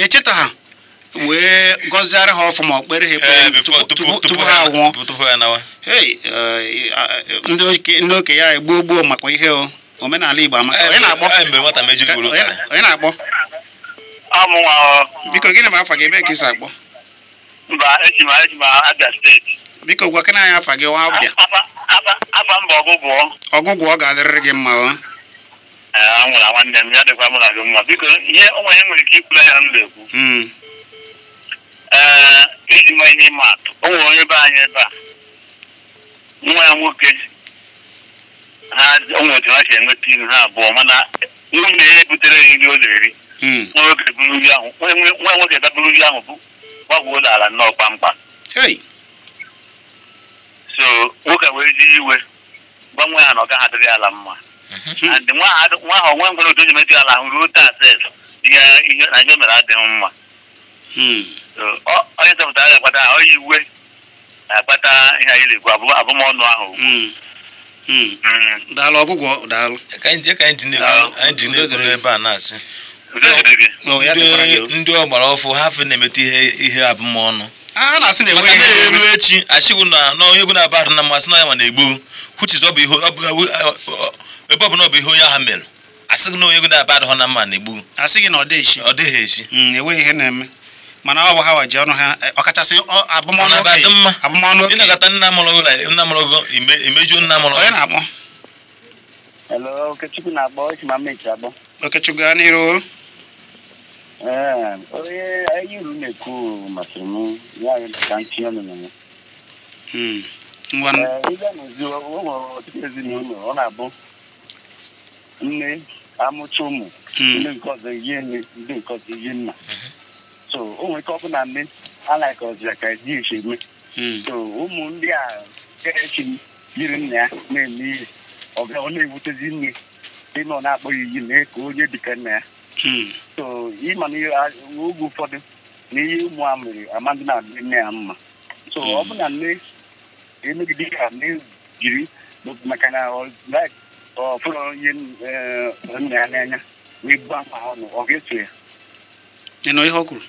echeta ha wee gọziara ha ọfụma okpere ha ekpere eh, tupu ha nwụọ eh, ndị oke ya egbuo gbuo maka ihe o omenala Igbo amaka eh, onye na-akpọ biko gịnị ma afa gị ebe ka isi akpọ biko gwakena anyị afa gị wa abịa ọgụgwọ ọ ga-adịrịrị gị mma o nwanne m ya dịkwa mụ na gị mma biko ihe onwe ihe nwere ike ikwula ya m na-ekwu hmm. ee iji mee ihe atụ o nwere onye be anyị ebe a nwa ya nwoke ha otu ha si enweta iru ha abụọ mana nwunye ya ebutere ya nri ọ na-eri hmm. nwa nwoke nwoke daburu nri ahụ bụ gbagwuo ụlọ ala nnọọ kpamkpam so nwoke wee ji iwe gbanwee ya na ọ gaghị adịrị ala mma mm-hmm. and nwa ahụ onwe nwere otu onye metụ ala ahụ ruo taa ses ihe na ihe mere adịghị mma hmm. onye chọpụtara ga-akpata onye iwe na-akpata ihe anyị na-ekwu abụmọnụ ahụ hmm. Hmm. Hmm. daalụ ọgwụgwọ daalụ ebe a na-asị ndị ọgbara ọfụ ha fe na emete ihe ihe abụmọnụ a na-asị na enweghị ihe elu echi achịgwu na onye egwu na-aba ahụ na mmasị na ya ma na-egbu kwuchizi ebe ọbụla ọ bụ ihe onye ha mere asịghị na onye egwu na-aba ahụ na mma na-egbu asịghị na ọ dịghị echi enweghị ihe na-eme mana ọ bụ ha waji ọnụ ha ọkachasị abụmọnụ okenye abụmọnụ okenye ịnagata nna mụrụ nna mụrụ gị imejuo nna mụrụ onye na-akpọ Hello, Okechukwu na-akpọ Chimamechi abụ Okechukwu gaa n'iru ee onye anyị uru na-ekwu masịrị m ya ka m tinye ọnụ na ya ịga n'ozi o nwere ọtụtụ ezinụlọ ọ na-abụ nne amụcha ụmụ hmm. ndị nke ọzọ ihe nne ndị nke ọzọ ihe nna so onwe gọvanọ ndị alaịkọzịa ka ji nsogbu so ụmụ ndị a kerechi yiri nna ya na-eme ihe ọ na-ewutezi nne ịnọ na-akpọ iyi mee ka onye dịka nna ya so ịma na ụfọdụ na ụmụ a mere amadị na-adị nne ya mma so ọ bụ na nne emegide ya nne jiri maka na ọ onye nna ya n'anya wee gba ma ọnụ ọ eso ya ihe ọ kwuru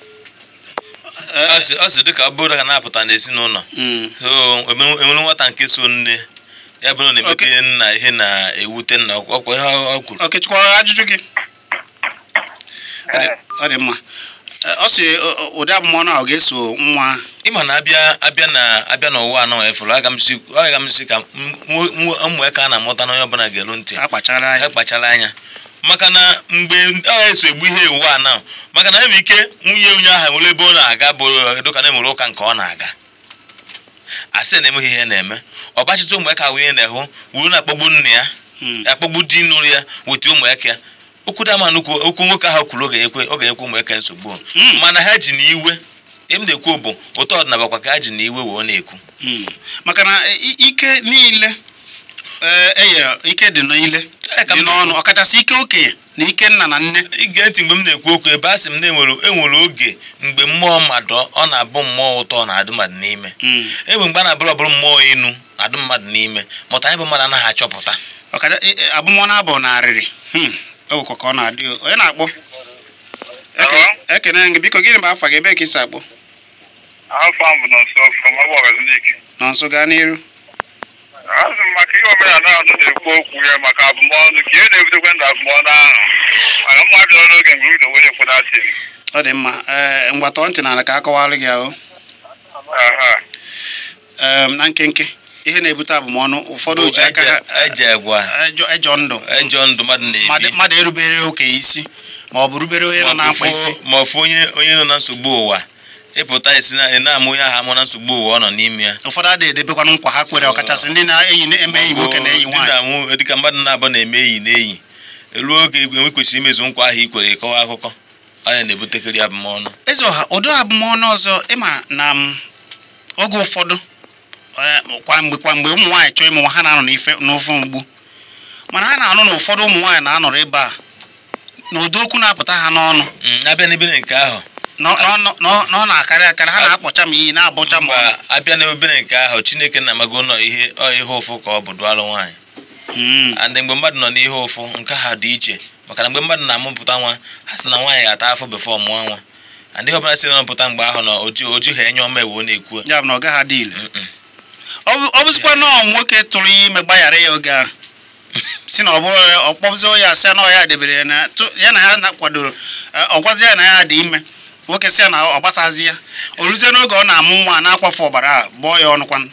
ọ sị dịka ọ bụrụ na ga na-apụta n'ezinụlọ hmm. enwere nwata nke so nne ya bụrụ na emete nna ihe na-ewute nna ọkwa ihe ọ kwuru okechukwu ajụjụ gị ọ dị mma ọ sị ụdị abụmọnụ ahụ ga-eso nwa ịma na abịa na abịa n'ụwa anọ efuru aga m si ka mmụọ ka a na-amụta n'onye ọbụla ga-eru ntị akpachara anya maka na mgbe agha eso egbu ihe iwu a na maka na enwere ike nwunye onye ahụ nwere ebe ọ na-aga bụ dịka na emere ụka nke ọ na-aga asị na emeghị ihe na-eme ọbachịta ụmụ ya nwunye na-ehụ wuru na-akpọgbu nne ya hmm. akpọgbu di nụrụ ya weta ụmụ ya okwu dama nnukwu okwu nwoke ahụ kwuru oge ekwe ụmụ eke nsogbu hmm. mana ha ji na iwe na-ekwu bụ ụtọ ọdịnala kwa ka ha ji na iwe wee na-ekwu hmm. maka na e, ike niile eye eh, eh, ike dị n'ile dị n'ọnụ ọkachasị ike okenye na ike nna na nne ị ga mgbe m na-ekwu okwu ebe a sị m na enwere e oge mgbe mmụọ mmadụ ọ na-abụ mmụọ ụtọ na adụ mmadụ n'ime hmm. enwe mgbe a na-abụrụ ọbụrụ mmụọ enu adụ mmadụ n'ime mụta anyị bụ mmadụ anaghị achọpụta abụmọ na abụ na arịrị hmm. ewekọ ka ọ na-adị onye na-akpọ ekene gị biko gịnị bụ afa gị ebe ka ị si akpọ nọnso gaa n'iru azụ m maka ihe omenala azụ na-ekwu okwu ya maka abụmọnụ ka ihe na-ebidokwa ndụ abụmọnụ ahụ maka mma bịara n'oge mgbe uru onye kwụnasịrị ọ dị mma ee mgbatọ ntị n'ala ka a gị ahụ na nkenke ihe na-ebute abụmọnụ ụfọdụ ji aka ejọ e e e ndụ mmadụ erubere okenye isi ma ọ bụ rubere onye nọ na mkpa isi ma ọ fụ onye nọ na nsogbu ụwa ịpụta esi na-amụ ya aha mụ na nsogbu ụwa ọ nọ n'ime ya ụfọdụ adịghị edebekwanụ nkwa ha kwere ọkachasị ndị na-eyi na-eme enyi nwoke na enyi nwaanyị na-awụ e dịka mmadụ na-abụ na-eme enyi na elu oge enwe kwesịrị imezu nkwa ahụ i kwere ịkọwa akụkọ anya na-ebutekarị abụmọnụ eze ọha ụdị abụmọnụ ọzọ ịma na m um, oge ụfọdụ e, kwa mgbe ụmụ nwaanyị chọọ ịmụ ha na-anọ n'ife n'ofe mgbu mana ha na-anụ na ụfọdụ ụmụ nwaanyị na-anọrọ ebe a na ụdị okwu na-apụta ha n'ọnụ mm, abịa n'ebe nke ahụ ọ na-akarị akarị ha na-akpọcha m iyi na-abụcha m abịa na obere nke ahụ chineke na-amago nọ ihe ihe ụfụ ka ọ bụ dụalụ nwaanyị hmm. and mgbe mmadụ nọ n'ihe ụfụ nke ha dị iche maka na mgbe mmadụ na-amụpụta nwa ha sị na nwaanyị ga-ata afọ befọ mụọ nwa andị ihe ọbụla si na-amụpụta mgbe ahụ na oju ha enye ọma ewu na-ekwu ọ bụzikwa nọọ nwoke tụrụ ya ime gbaghara ya oge ahụ si na ọ bụrụ ọkpọbụzi ya sị na ọ ya debere ya na ya na ya kwadoro ọgwazi ya na ya dị ime nwoke si ya na ọ gbasazi ya o ruzie n'oge ọ na-amụ nwa na-akwafe ọbara a bụọ ya ọnụ ọnụkwan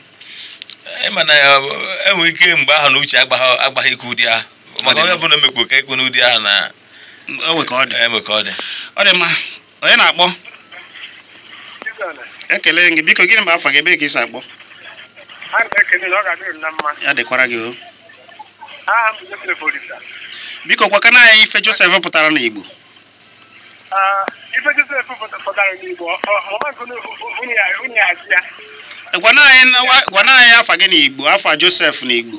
mana enwe ike mgbe ahụ na uche agbaghị ike ụdị ahụ maka onye ọbụla emekwa ka ikwu n'ụdị ahụ na enwe ka ọ dị e ọ dị mma onye na-akpọ ekele gị biko gịnị bụ afọ gị ebe ka ị akpọ ya dịkwara gị o biko gwakana anyị ife Joseph pụtara n'Igbo ah, Uh, uh, eh, gwana anyị afa gị n'igbo afa josef n'igbo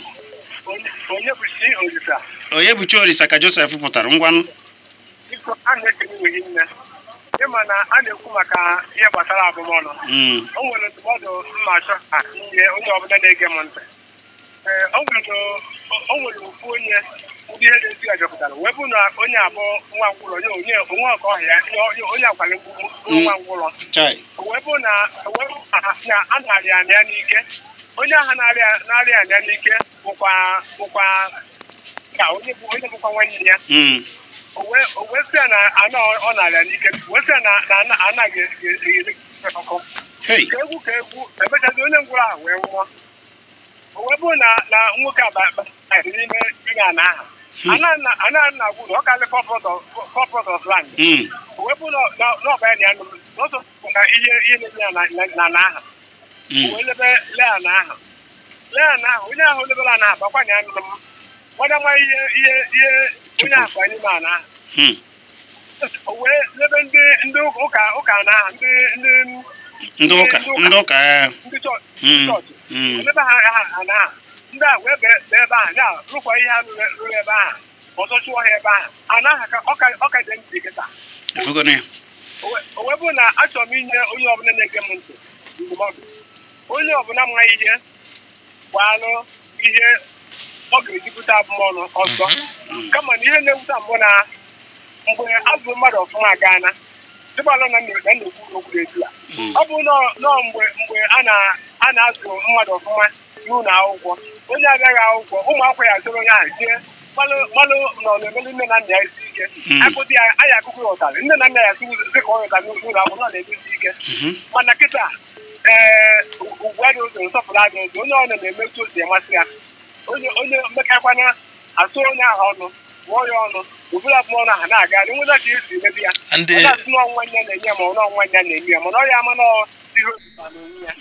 onye bụ chi orisa ka josef pụtara ngwanụ ịma na a na-ekwu maka ihe gbasara abụmọnụ hmm. o nwere ndụmọdụ mma achọ ka nye onye ọbụla na-ege m ntị eh, o nwere ofu onye ndị ihe ga esi ya jọpụtara wee bụ na onye abụ nwa ngwụrọ nye onye onwe ọka ọhịa onye akwali nwa mm. ngwụrọ wee bụ na a narị anị ya n'ike onye ahụ narị anị ya n'ike bụkwa bụkwa ka onye bụkwa nwanne ya mm. wee sị ya na anọ ọ narịa n'ike wee sị ya na anaghị eri e, e, e, ọkụ ka egwu ka egwu emechazi onye ngwụrọ ahụ wee nwụọ o wee bụ na nwoke a n'ime ime ala ahụ Hmm. ananagwu na ọ kalị corporate of land hmm. wepụ n'ọbara ya n'ụzọ na ihe ihe na-eme a na aha hmm. wee lebe na aha lea na aha onye ahụ a na aha akwanye anụrụ m gbada nwa ihe ihe ihe onye ahụ aha lebe ndị ndị ụka ụka na aha ndị ndị ndị ụka ndị ụka ndị ndị ụka eh. ndị ụka ndị ndị a wee bee ebe a na-arụkwa ihe a rụrụ ebe a ọzọ chụọ ha ebe a anaghị ọka dị ntị kịta o wee na achọrọ m inye onye ọbụla na-ege m ntị ndụmọdụ onye ọbụla mma ihe gbaalụ ihe ọ ga-ejupụta abụmọnụ ọzọ mhm. kama na ihe na-ewuta mbụ na mgbe azụ mmadụ ọfụma agaana dịbalụ na na-ekwuru okwu etu a mhm. ọ bụ nọọ mgbe a na-azụ mmadụ ọfụma n'ụlọ akwụkwọ onye abịaghị akwụkwọ ụmụ akwụkwọ ya azụrụ onye ahụ tie mmanụ nọ na-emeli nne na nna ya isi ike hmm. akụdị ya anyị akụkụ ụtarị nne na nna ya dị ka ọ ụtarị n'ụlọ akwụkwọ na-emesi ike hmm. mana kịta ee ugwu adị ụzọ nsọpụrụ adị ụzọ onye ọ na-emetụ osi masị ya onye mmekakwana atụ onye ahụ ọnụ gụọ ya ọnụ ụbụrụ abụọ na ha na-aga nweta ka esi emebi ya ọnwa nne na-enye ma ọnwa nne na-enye ya mana ọ ya ama n'ọrụ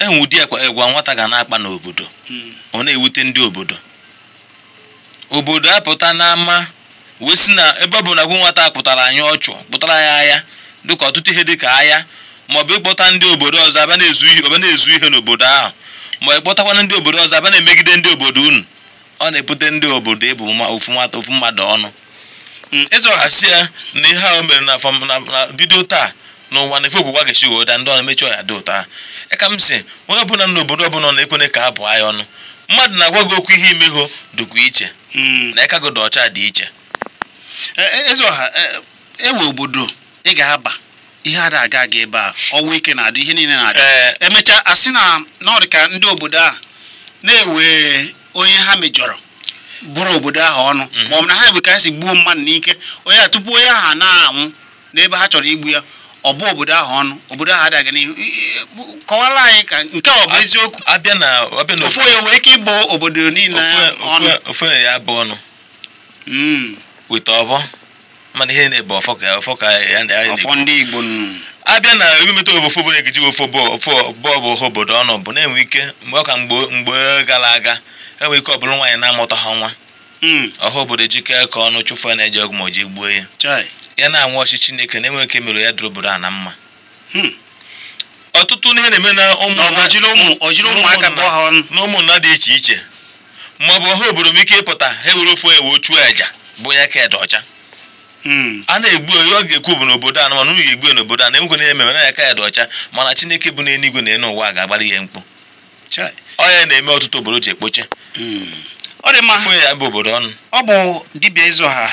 enwe ụdị nwata ga na-akpa n'obodo hmm. ọ na-ewute ndị obodo obodo apụta n'ama wee na ebe ọ bụ na gwụ nwata a pụtara anyị ọchụ pụtara ya agha dịka ọtụtụ ihe dịka agha maọbụ ịkpọta ndị obodo ọzọ abịa na-ezu ihe ọbịa na-ezu ihe n'obodo ahụ ma ịkpọtakwana ndị obodo ọzọ abịa na-emegide ndị obodo unu ọ na-ebute ndị obodo ịbụ ofu nwata ofu mmadụ ọnụ ịzọghasị hmm. ya na ihe ahụ mere na bido taa n'ụwa na efe ogbugwa ga-esi obodo ndị ọna emechi ọya dị ụta. ha ka m si onye ọbụla na obodo ọbụla na-ekwene ka abụ anya ọnụ mmadụ na-agwa gị okwu ihe imegho dụkwa iche hmm. na ịka gị dị ọcha dị iche e, e, eze ọha ewe e obodo ị ga-aba ihe ada aga aga ebe a ọnwụ ike na-adị ihe niile na-adị a asị na ọ ndị obodo a na-ewe onye ha mejọrọ bụrụ obodo ahụ ọnụ hmm. ma ọ bụ na ha bụ ka ha si gbuo mmadụ n'ike onye a tupu onye ahụ na-anwụ n'ebe ha chọrọ igbu ya ọ bụ obodo ahụ ọnụ obodo ahụ adịghị n'ihu kọwara anyị ka nke ọ bụ eziokwu ofu onye nwere ike ịbụ obodo niile ọnụ ofu onye ya bụ ọnụ hmm. weta ọbọ mana ihe na-ebe ọfọ ka ọfọ ka ya na ya ọfọ ndị Igbo nụ abịa na ewemeta ofu obodo egeji ofu bọọbụ obodo ọnụ bụ na-enwe ike mgbe ọka ka mgbe gara aga enwe ike ọbụrụ nwaanyị na-amụta ha nwa hmm. ọha obodo jikee ka ọnụ chụfụ na-eji ọgwụ ma o ji gbuo ya ya na-anwụ ọchị Chineke na-enwe nke mere ya dụrụ a na mma hmm. ọtụtụ ihe na-eme na na ụmụnna dị iche iche ma ọ bụ ọhụrụ obodo m ike ịpụta ha ewere ofe ewe ochuo aja bụ ya ka ọcha hmm. a na-egbu onye ọ ga-ekwu bụ n'obodo a na mana unu egbu ya n'obodo a na-enwekwe na eme na ya ka ya dị ọcha mana Chineke bụ n'eluigwe na elu ụwa ga-agbara ihe mkpu ọ ya na-eme ọtụtụ obodo ji ekpoche hmm. ọ dị mma ya bụ obodo ọnụ ọ bụ ịzụ ha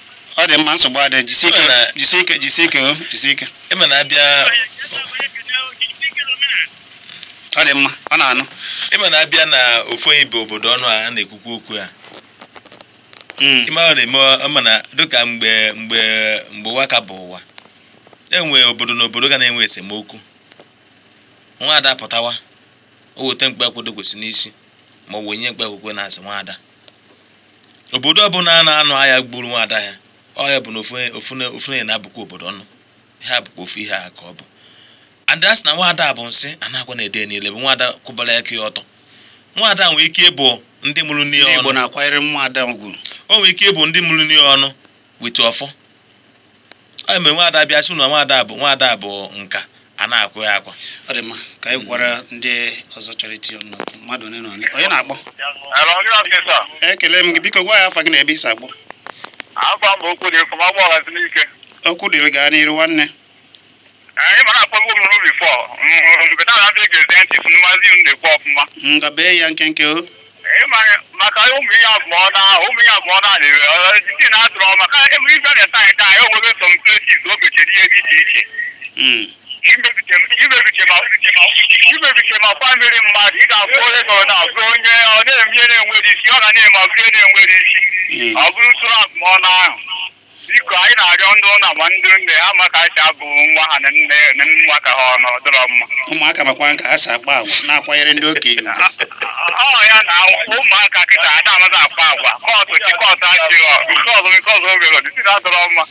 ọ dị mma nsogbu adị jisike jisike jisike. ike o oh, na abịa ọ dị mma ọ na-anụ ịma na abịa na ofu bụ obodo ọnụ a na-ekwukwu okwu a hmm. ịma ọ na-eme ọma na dịka mgbe mgbe mgbe ụwa ka bụ ụwa enwe obodo na obodo ga na-enwe esemokwu nwa ada pụtawa o weta mkpa akwụdo kwesị n'isi ma ọ wụ onye mkpa akwụkwọ na-azụ nwaada obodo ọbụla a na-anụ agha gburu nwaada ya ọya bụ na ofu na-abụkwa obodo ọnụ Ihe abụkwa ofu ihe a ka ọ bụ ada sị na nwaada bụ nsị anakwa na-ede niile bụ nwaada kwụbara aka ya ọtọ nwaada nwee ike ịbụ ndị mụrụ n'ihe ọnụ. Igbo na-akwanyere ya ọnụ o nwee ike ịbụ ndị mụrụ n'ihe ọnụ wetu ọfọ ọ mere nwaada bịa sị na nwaada bụ nwaada bụ nka a na-akwụ ya akwa ọ dị mma ka anyị gwara ndị ọzọ chọrọ iti ọnụ mmadụ onye na onye onye na-akpọ ekele m gị biko gwa ya afa gị na ebe isi akpọ afọ mba okwu dị kọma ma agba ọghazi n'ike okwu dịrị gaa n'iru nwanne anyị mara akpọgbu m n'obi fọ mbeta na abịa ga-eze ntị si mmazi m na-ekwu ọfụma nga bee ya nkenke o maka ụmụ ihe abụọ na ụmụ ihe abụọ na na-ewe ojiji na-adụrọ maka emume ibe na-eta anyị anyị onwebe som plesis o ihe dị iche iche hmm. imebiche ma kwa mmiri mmadụ ị ga afụ onye gọrọ na onye ọ na-emie na-enwere isi ọ ga na-eme ọbụrụ na-enwere isi ọ bụrụ usoro abụmọnụ ahụ biko anyị na-arịọ ndị ụlọ ma ndị nne ha maka acha bụ nwa ha na nne na nwa ka ha ọnụ dọrọ mma ụmụaka makwa ka ha si akpa agwa na-akwanyere ndị okenye ọ ya na ụmụaka kịta ada amaghị akpa agwa kọtụ chi kọtụ achịghọ nke ọzọ nke ọzọ oge ọdịsị na-adọrọ mma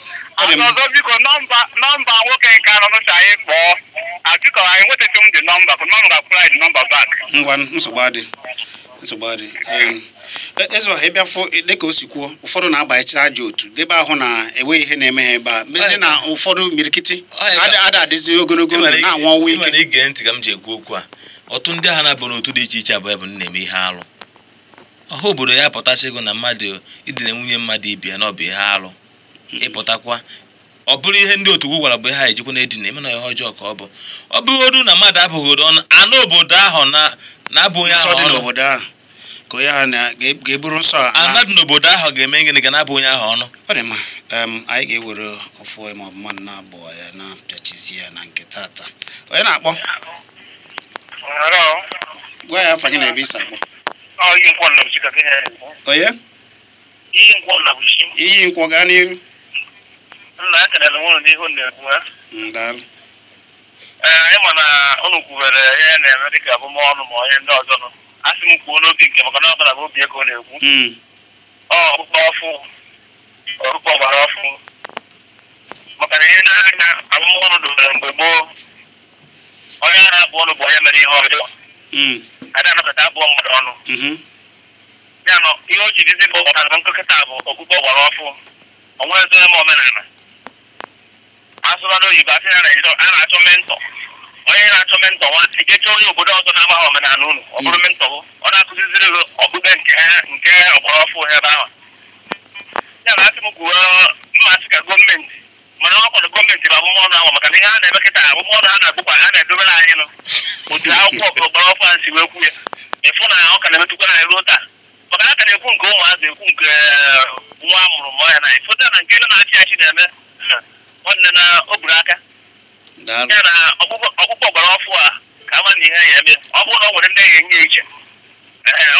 ọzọ biko nọmba nọmba nwoke nke anọ nụcha anyị kpọọ abiko anyị nwetaghị m dị nọmba ka nọmba kwụrụ anyị nọmba bak ngwa nsogbu adị nsogbu adị e, ezo ịbịa fụ dịka o si kwuo ụfọdụ na-agbanyechara aja otu debe ahụ na enweghị ihe na-eme ha ebe a mezi na ụfọdụ mirikiti ada adịzi ogologo ndụ na-anwụ ọnwụ ike ige ntị ka m ji ekwu okwu a ọtụ ndị agha na-abụ n'otu dị iche iche abụọ bụ na-eme ihe arụ ọha obodo ya pụtasị na mmadụ idina nwunye mmadụ ibia na ọ bụ ihe arụ ịpụtakwa ọ bụrụ ihe ndị otu gwara bụ ha ejikwa na edina ịmana ihe ọjọọ ka ọ bụ ọ bụrụ na mmadụ abụghị ọnụ anụ obodo ahụ na-abụghị ahụ ka onye ga-eburu nsọ anadị n'obodo ahụ ga-eme gịnị ga na-abụ onye ahụ ọnụ ọ dị mma anyị ga-ewere ọfụ ma ọ bụ mmadụ na-abụọ ya na bịachizi ya na nke taata onye na-akpọ gwa ya afanye na ebe isi akpọ onye iyi nkwọ gaa n'iru nna a na m n'ihu na-ekwu ee eh, ị ma na ụnụ kwubere ihe na-eme dị dịka abụmọnụ ma onye ndị ọzọ nọ asị m kwuo n'obi nke maka na ọ bụla bụ obi ego na-ekwu hmm. ọkpụkpọ ọfụ ọkpụkpọ gbara ọfụ maka na ihe na-anya abụmọnụ dobere mgbe gboo onye a na-abụ ọnụ bụ onye mere ihe ọjọọ adịghị hmm. anọkọta abụọ mmadụ ọnụ hmm. ya nọ ihe o ji dizi bụ ọkpụkpọ nkịta bụ ọkpụkpọ gbara ọfụ onwere m omenala asụsụ oyibo asị na Naịjirịa a na-achọ mentọ onye na-achọ mentọ nwanne gechaa onye obodo ọzọ na-agbaghị omenala unu ọ bụrụ hmm. mentọ gụ ọ na-akụziziri gị okpukpe nke ha nke ọkpọrọfụ ebe ahụ ya na asị m gwuo mmasị ka gọọmenti mana ọ kwadụ gọọmenti bụ ọnụ ahụ maka na ihe a na-eme kịta ọnụ ha na-agbụkwa ha na-edobere anyị nụ otu akwụkwọ ọkụ ọkpọrọfụ a si wee kwu ya ịfụ na ọ ka na-emetụkwa anyị ruo taa maka na a ka na-ekwu nke ụmụazị ekwu nke eh, nwa a mụrụ mụọ ya na ịfụta na nke ndị na-achị achị na-eme nwanne na o buru aka ya na ọkpụkpọ gbara ọfụ a ka ama na ihe ya eme ọ bụrụ na ọ nwere ndị ya enye iche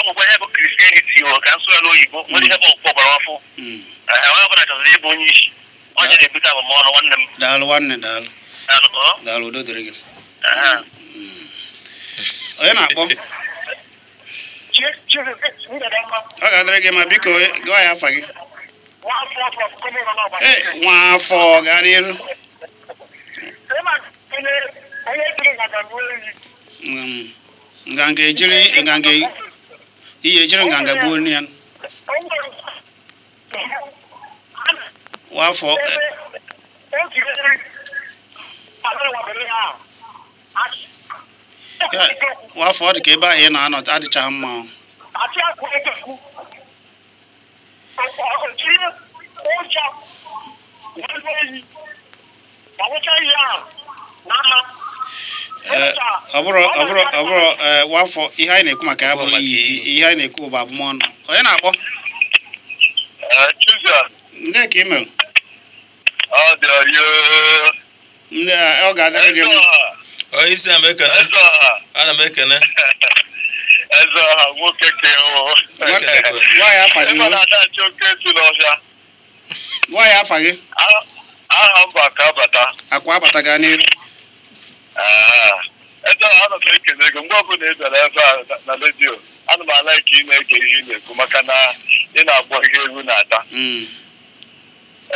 ọgwụgwọ ihe bụ kristianity o ka nsọ n'oyibo nwere ihe bụ ọkpụkpọ gbara ọfụ onye ọbụla chọziri ịbụ onye isi onye na-ebute abụmọnụ nwanne m daalụ nwanne daalụ daalụ udo dịrị gị onye na-akpọ ọ ga-adịrị gị ma biko gụọ ya afa gị Eh, nwafọ gara iru nganga ejiri nganga ihe ejiri nganga gbuo nri ya wafọ eh, wafọ ọ dị ka ebe ahụ ị na-anọ adịchaghị mma Ọ bụrụ ọ bụrụ ọ bụrụ wafọ ihe anyị na-ekwu maka ya bụrụ ihe anyị na-ekwu bụ abụmọnụ onye na-akpọ ndị ka mere ndị ọ ga-adịrị gị ana m ekene eze ọha nwoke ka ịnadachi e oke e e si n'ọhịa nwaanyị afa gị aha mba ka abata akwa abata gaa n'elu eze ọha anọ m ekele ego mgbe ọbụla ị bịara ebe a na redio ana m ala ka ị na-ege ihe ị na-ekwu maka na ị na-akpọ ihe egwu na-ata hmm.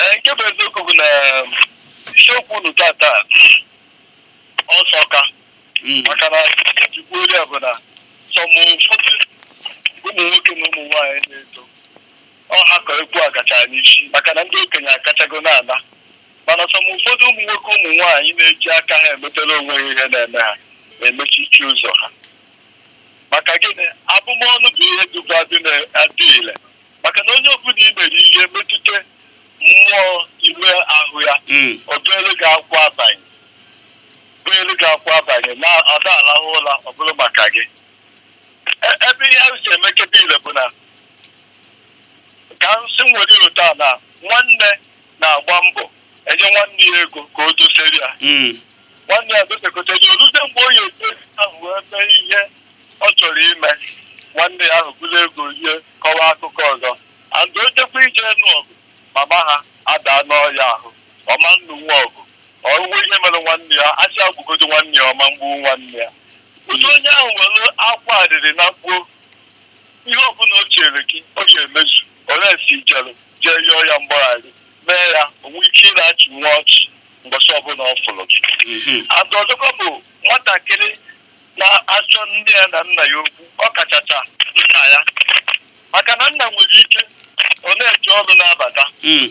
ee nke bụ eziokwu bụ na um, isiokwu unu tata ọsọka hmm. maka na ejikwa ori a bụ na ụmụ nwoke na ụmụ nwaanyị na-eto ọha ka egwu agacha n'isi maka na ndị okenye akachago ala mana sọm ụfọdụ ụmụ nwoke ụmụ nwaanyị na-eji aka ha emetela onwe ha ihe na-eme ha na-emechichi ụzọ ha maka gịnị abụmọnụ bụ ihe duba adị ile maka na onye ọbụla i mere ihe metụta mmụọ ime ahụ ya hmm. ọ bụelu gị akwa abanye gị akwa abanye na ọ da alahụ ụla ọ bụrụ maka gị ebe ihe ahụ si emekebe ile bụ na ka nsị nwere ụtọ a na nwanne na-agba mbọ enye nwanne ya ego ka o dosere ya hmm. nwanne ya dosekọtara oluze mgbe onye ete ahụ wee mee ihe ọ chọrọ ime nwanne ya ahụ bụrụ ego ihe kọwa akụkọ ọzọ andụ ojekwa ije nụ ọgụ mama ha adaa n'ọya ahụ ọma nnu nwa ọgụ ọwụwe ihe mere nwanne ya asị agwụgodo nwanne ya ọma mgbu nwanne ya ụtu onye ahụ nwere akwa adịrị na mkpuo ihe ọbụla o chere gị o ga-emezu olesi jere jee yọọ ya mgbaghara mee ya onwe ike achị nwa ọchị mbọchị ọbụla ọ fụrụ gị mhm. ada bụ nwatakịrị na-achọ nne ya na nna ya okwu ọ kachacha nna ya maka na nna nwere ike ọ na eche ọrụ na-abata mhm.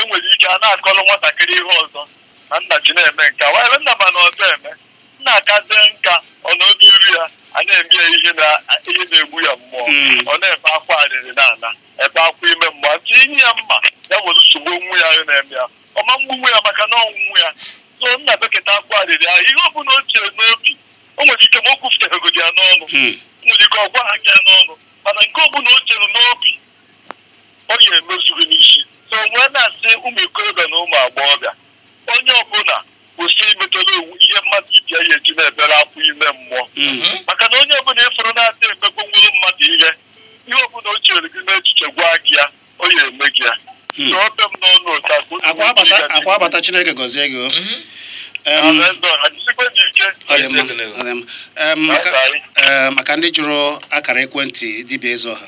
enwere ike a na-akọrọ nwatakịrị ihe ọzọ na nna ji na-eme nke a were nna ma na ọzọ eme na-akazi nka ọ nọ iri ya a na-eme ya ihe na-egbu ya mmụọ hmm. ọ na ebe akwa arịrị ala ebe akwa ime mmụọ atụ inye ya mma ya nwere nsogbu onwu ya na-eme ya ọma mgbunwe ya maka na ọnwụnwụ ya so nna beketa akwa arịrị ahụ ihe ọ bụla o chie n'obi o nwere ike ma o kwufụtaregodi ya n'ọnụ hmm. nwere ike ọ gwa ha gị n'ọnụ mana nke ọ bụla o chere n'obi ọ ya emezughị n'isi so nwee na-asị ụmụ ikorobịa na ụmụ agbọghọbịa onye ọbụla kwụsị imetụrụ ihe mmadụ ibi ya eji na-ebere afọ ime mmụọ mhm. maka na onye ọbụla ịfụrụ na-adị emegbu nwere mmadụ ihe ihe ọbụla o chere gị n'echiche gwa gị ya ọ ya eme gị ya hmm. akwa abata chineke gọzie gị mhm. maka ndị jụrụ akara ekwentị dibịa eze ọha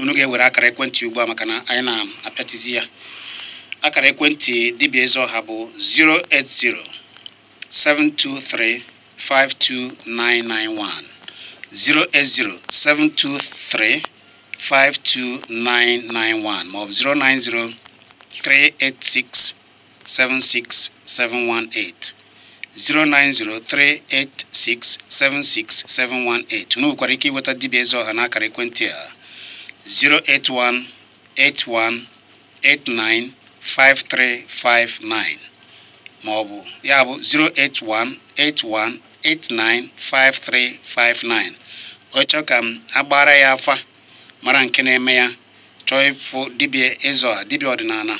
unu ga-ewere akara ekwentị ugbu a maka na anyị na-apịatizi ya akara ekwentị dibịa ezu ọha bụ 08072352991 08072352991 maọbụ 09038676718 09038676718 unu ike ịweta dibịa eze ọha n'akara ekwentị a 081 89. 5359 maọbụ ya bụ 08181895359 ọ chọọ ka m agbara ya afa mara nke na-eme ya chọọ ịfụ dibịa ịzọ dibia ọdịnala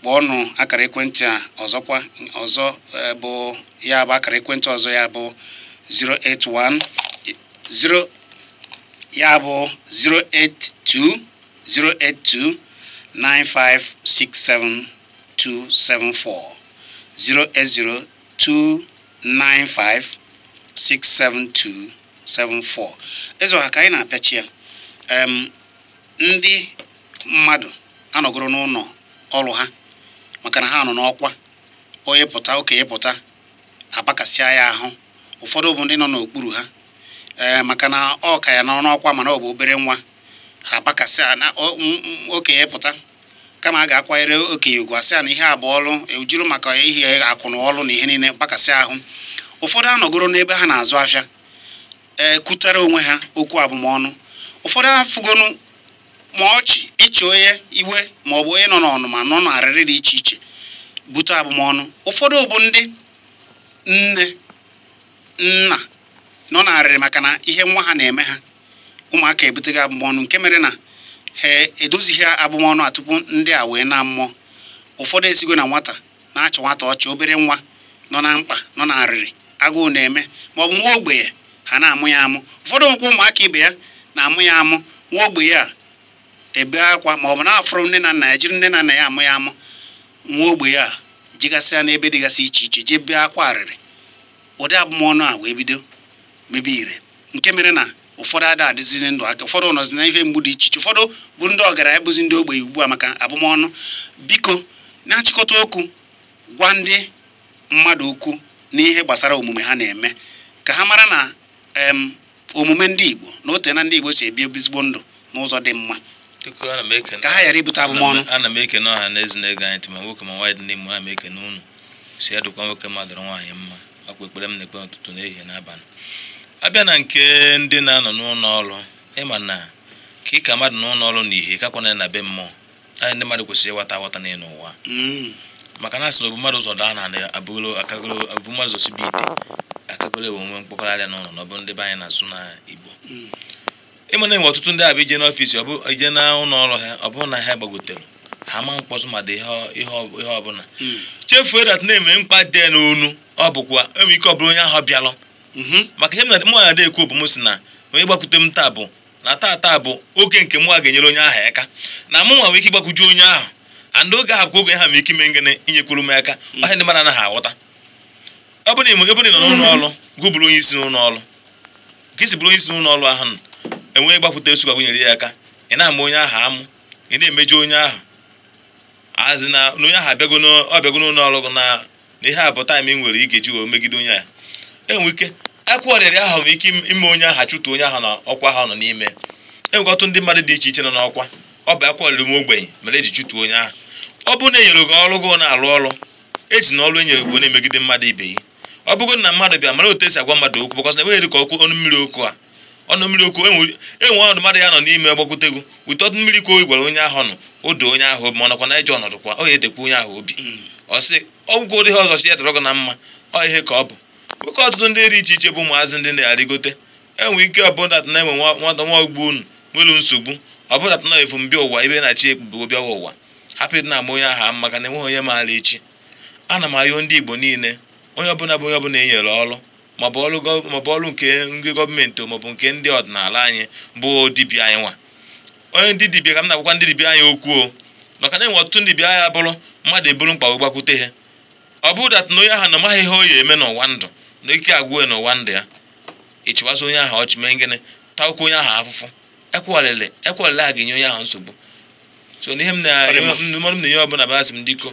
kpọọnụ akara ekwentị a ọzọkwa ọzọ e, bụ ya bụ akara ekwentị ọzọ ya bụ 081 0 ya bụ 082 082 two seven four ka anyị na-apịachi ya ndị mmadụ anọgoro n'ụlọ ọrụ ha maka na ha nọ n'ọkwa onye pụta okenye pụta apakasịa ya ahụ ụfọdụ bụ ndị nọ n'okpuru ha eh, maka na ọ ka ya nọ n'ọkwa mana ọ bụ obere nwa ha agbakasị a na okenye pụta kama a ga-akwanyere okenye ugwu asị a na ihe abụọ ọlụ ejuru maka ihe akwụna ọlụ na ihe niile gbakasị ahụ ụfọdụ anọgoro n'ebe ha na-azụ afịa ekutere onwe ha okwu abụmọnụ ụfọdụ afụgonu ma ọchị ịchị onye iwe ma ọ bụ onye nọ n'ọnụma nọ n'arịrị dị iche iche bute abụmọnụ ụfọdụ bụ ndị nne nna nọ n'arịrị maka na ihe nwa ha na-eme ha ụmụaka ebutego abụmọnụ nke mere na ha edozighị abụmọnụ a tupu ndị a wee na mmụọ ụfọdụ esigo na nwata na-achị nwata ọchị obere nwa nọ na mkpa nọ na arịrị agụụ na-eme ma ọ bụ nwa ogbenye ha na-amụ ya amụ ụfọdụ nwekwa ụmụaka ibe ya na-amụ ya amụ nwa ogbenye a ebe akwa ma ọ bụ na-afụrụ nne na nna ya jiri nne na nna ya amụ ya amụ nwa ogbenye a jigasịa n'ebe dịgasị iche iche jee bee akwa arịrị ụdị abụmọnụ a wee bido mebe ire nke mere na ụfọdụ ada adịzizi ndụ aka ụfọdụ nọzi na ihe mgbu dị iche iche ụfọdụ bụ ndị ọgaranya bụzi ndị ogbenye ugbu a maka abụmọnụ biko na-achịkọta okwu gwa ndị mmadụ okwu n'ihe gbasara omume ha na-eme ka ha mara na omume ndị Igbo na ote na ndị Igbo si ebi ezigbo ndụ n'ụzọ dị mma ka ha ghara ibute abụmọnụ ana m ekene ọha na eze na-ege anyị ntị nwoke ma nwaanyị dị n'ime ana m ekene unu si ya nwoke mmadụ nwaanyị mma akwa ekpere m na-ekpe n'ụtụtụ n'ehihie n'abalị abịa na nke ndị na-anọ n'ụlọ ọrụ ịma na ka ị mmadụ n'ụlọ ọrụ na ihe kakwa na be mmụọ anyị ndị mmadụ kwesịrị ịghọta aghọta n'elu ụwa mm. maka na asị na obu ụzọ daa na abụgolo akagolo obu mmadụ ụzọ sibe ite akagolo bụ omume mkpọkọrọ n'ụlọ na ọ bụ ndị be anyị na-azụ na igbo mm. ịma na enwe ọtụtụ ndị abịa ije n'ọfịs ọ bụ ije na ụlọ ọrụ ha ọ bụrụ na ha gbagotere ha ma mkpọtụ ma dị ihe ọbụla mm. chefuo dat na-eme mkpa dị n'onu ọ bụkwa enwe ike ọ bụrụ onye ahụ bịalụ Mhm. maka ihe m na mụ na ekwu bụ m si na onye gbakwute m taa bụ na taa bụ oge nke mụ ga-enyere onye ahụ aka na mụ nwa nwee ike ịgbakwuju onye ahụ and oge ahụ bụkwa oge ha m ike ime ngene inyekwuru m aka mhm. ọha ndị mara anaghị aghọta ọ bụrụ na ebe ị nọ n'ụlọ mhm. ọrụ gụ bụrụ onye isi n'ụlọ ọrụ ka isi bụrụ onye isi n'ụlọ ọrụ ahụ enweghị enwee gbakwute osu nyere ya aka ị na-ama onye ahụ amụ ị na-emeju onye ahụ azi na onye ahụ abịago n'ụlọ ọrụ na ihe a bụ taịm ị nwere ị eji wee megide onye ahụ enwe ike akwụkwọ ọrịrị nwere ike ime onye aha chụtụ onye ahụ na ọkwa ha nọ n'ime enwekọtụ ndị mmadụ dị iche iche nọ n'ọkwa ọ bụ akwụkwọ ọrịrị ogbenye mere eji chụtụ onye ahụ ọ bụrụ na e gị ọrụ gị na-alụ ọrụ eji na ọrụ e nyere gị na-emegide mmadụ ibe ya ọ bụrụ na mmadụ bịa mara otu esi agwa mmadụ okwu bụkọsị na enweghị ka ọkụ ọnụ mmiri okwu a ọnụ mmiri okwu enwe e ọnọdụ mmadụ ya nọ n'ime gbakwute gị wute ọdụ mmiri ka o gwara onye ahụ nọ o onye ahụ obi ma ọnọkwa na ije ọnọdụ kwa o ya edekwa onye ahụ obi hmm. ọ sị ọgwụgwọ ụdị ọzọ chi ya dọrọ gị na mma ọ ihe ka ọ bụ oke ọtụtụ ndị dị iche iche bụ ụmụazị ndị na-arịgote enwe ike ọbụdatụ na enwe nwata nwa ogbo unu nwelu nsogbu ọbụdatụ na efumbịa ụwa ebe na-achị ebubo bịawa ụwa hapụ ịdị na-ama onye aha maka na enweghị onye maara echi ana m ayụ ndị igbo niile onye ọbụla bụ onye ọbụla enyere nyere ọrụ maọbụ ọrụ nke ndị gọọmenti maọbụ nke ndị ọdịnala anyị bụ dibia anyị nwa onye ndị dibia ka m na-agwakwa ndị dibịa anyị okwu o maka na enwe ọtụtụ ndị dibịa ya bụrụ mmadụ eburu gbakwute ha ọ bụrụ datụ na onye ahụ na maghị ihe o eme n'ụwa ndụ na ike agwụ ya n'ụwa ndụ ya ịchịwasị onye ahụ ọchị mee ngịnị takwuo onye ahụ afụfụ ekwelele ekwelele a ga-enye onye ahụ nsogbu so n'ihe m na-enye na ihe ọbụla basị m diko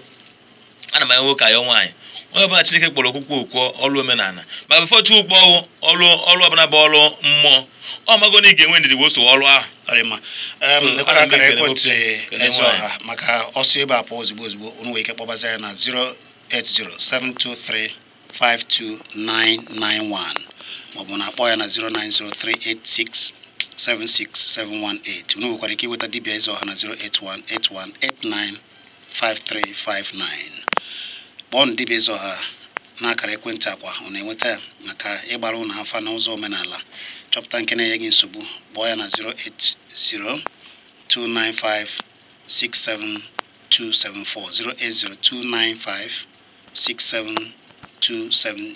ana m anya nwoke ayọ nwaanyị onye ọbụla Chineke kpọrọ okwukwe okwo ọlụ omenala maka befọtu ukpo ọwụ ọlụ ọrụ ọbụla bụ ọrụ mmụọ ọ mago na ị ga-enwe ndidi wee so ọrụ ahụ e, maka ọsọ ebe a pụọ ozugbo ozugbo unu nwere ike kpọbaza ya na 0807233 52991 maọbụ na akpọ ya na 09038676718 unu nwekwara ike inweta dibia eze ọha na 08181895359 kpọọnụ dibia eze ọha n'akara ekwentị akwa ọ na-enweta maka ịgbara ụnụ afa n'ụzọ omenala chọpụta nke na-enye gị nsogbu kpọọ ya na 7274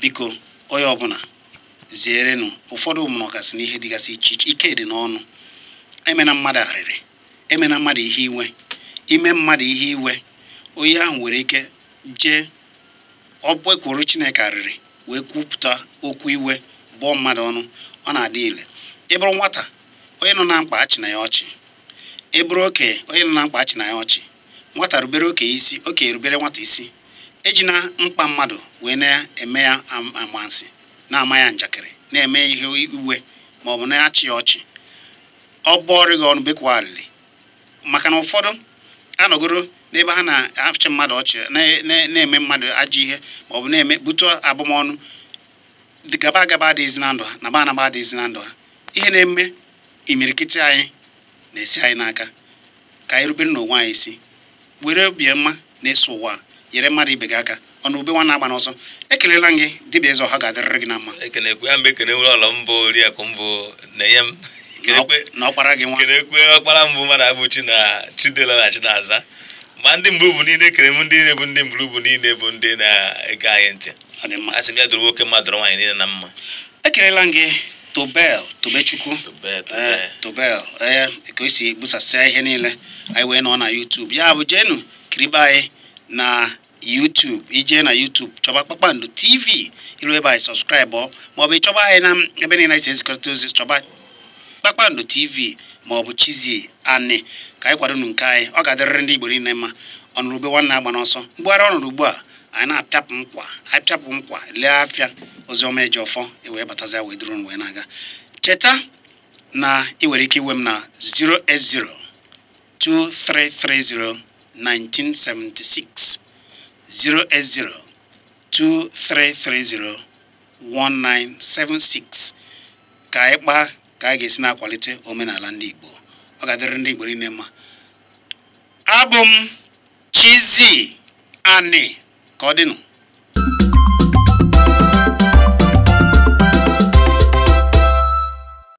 biko onye ọbụla zierenụ ụfọdụ ụmụnọgasị na ihe dịgasị iche iche ike dị n'ọnụ emena mmadụ arịrị emena mmadụ ihe iwe ime mmadụ ihe iwe onye ahụ nwere ike jee ọ gbekwuru chineke arịrị wee kwupụta okwu iwe bụọ mmadụ ọnụ ọ na-adị ile ịbụrụ nwata onye nọ na mkpa achị na ya ọchị ịbụrụ okenye onye nọ na mkpa achị na ya ọchị nwata rubere okenye isi okenye rubere nwata isi ejina mkpa mmadụ wee na-eme ya amansi na-ama ya njakịrị na-eme ihe iwe ma ọ bụ na-achị ya ọchị ọ bụọrị gị ọnụ bekwa maka na ụfọdụ anọgoro n'ebe ha na-achị mmadụ ọchị na-eme mmadụ ajọ ihe ma ọ bụ na-eme butu abụmọnụ gaba agaba adịghịzi na ndụ ha na ba anaba adịghịzi na ndụ ha ihe na-eme imirikiti anyị na-esi anyị n'aka ka anyị rubere n'onwe anyị isi were obi na-eso ụwa nyere mmadụ ibe gị aka ọnụ ube nwa na-agba n'ọsọ ekelela gị dibịa eze ha ga-adịrịrị gị na mma ekenekwe ya mgbe ekene nwere ọlọ mbụ oriakụ mbụ na-enye m na ọkpara gị nwa ekenekwe ọkpara mbụ mmadụ abụ na chidela na chinaza ma ndị mbụ bụ niile ekere m ndị na-ebu ndị mbụ bụ niile bụ ndị na-ege anyị ntị a sị m ya doro nwoke mmadụ doro nwaanyị niile na mma ekelela gị tobel tobechukwu tobel ee eh, eh, ka o si busasịa ihe niile anyị wee nọ na YouTube ya bụ jenu kiribe anyị na YouTube ije na YouTube chọba Kpakpando TV iru ebe anyị sọskraịbụ maọbụ ịchọba anyị na ebe niile anyị si ezikọrịta ozi chọba Kpakpando TV maọbụ chizi anị ka anyị kwadonu nke anyị ọ ga-adịrịrị ndị Igbo niile mma ọnụrụgbe nwanne agba n'ọsọ mgbugharị ọnọrụ ugbu a anyị na-apịapụ nkwa apịapụ nkwa lee afịa oziọma eji ọfọ ewee batazi wee duru wee na-aga cheta na ị nwere ike iwe m na 080 1976 08023301976 ka ị kpaa ka a ga-esi na-akwalite omenala ndị Igbo ọ ga-adịrị ndị Igbo niile mma abụ m Chizzy Ani ka ọ dịnụ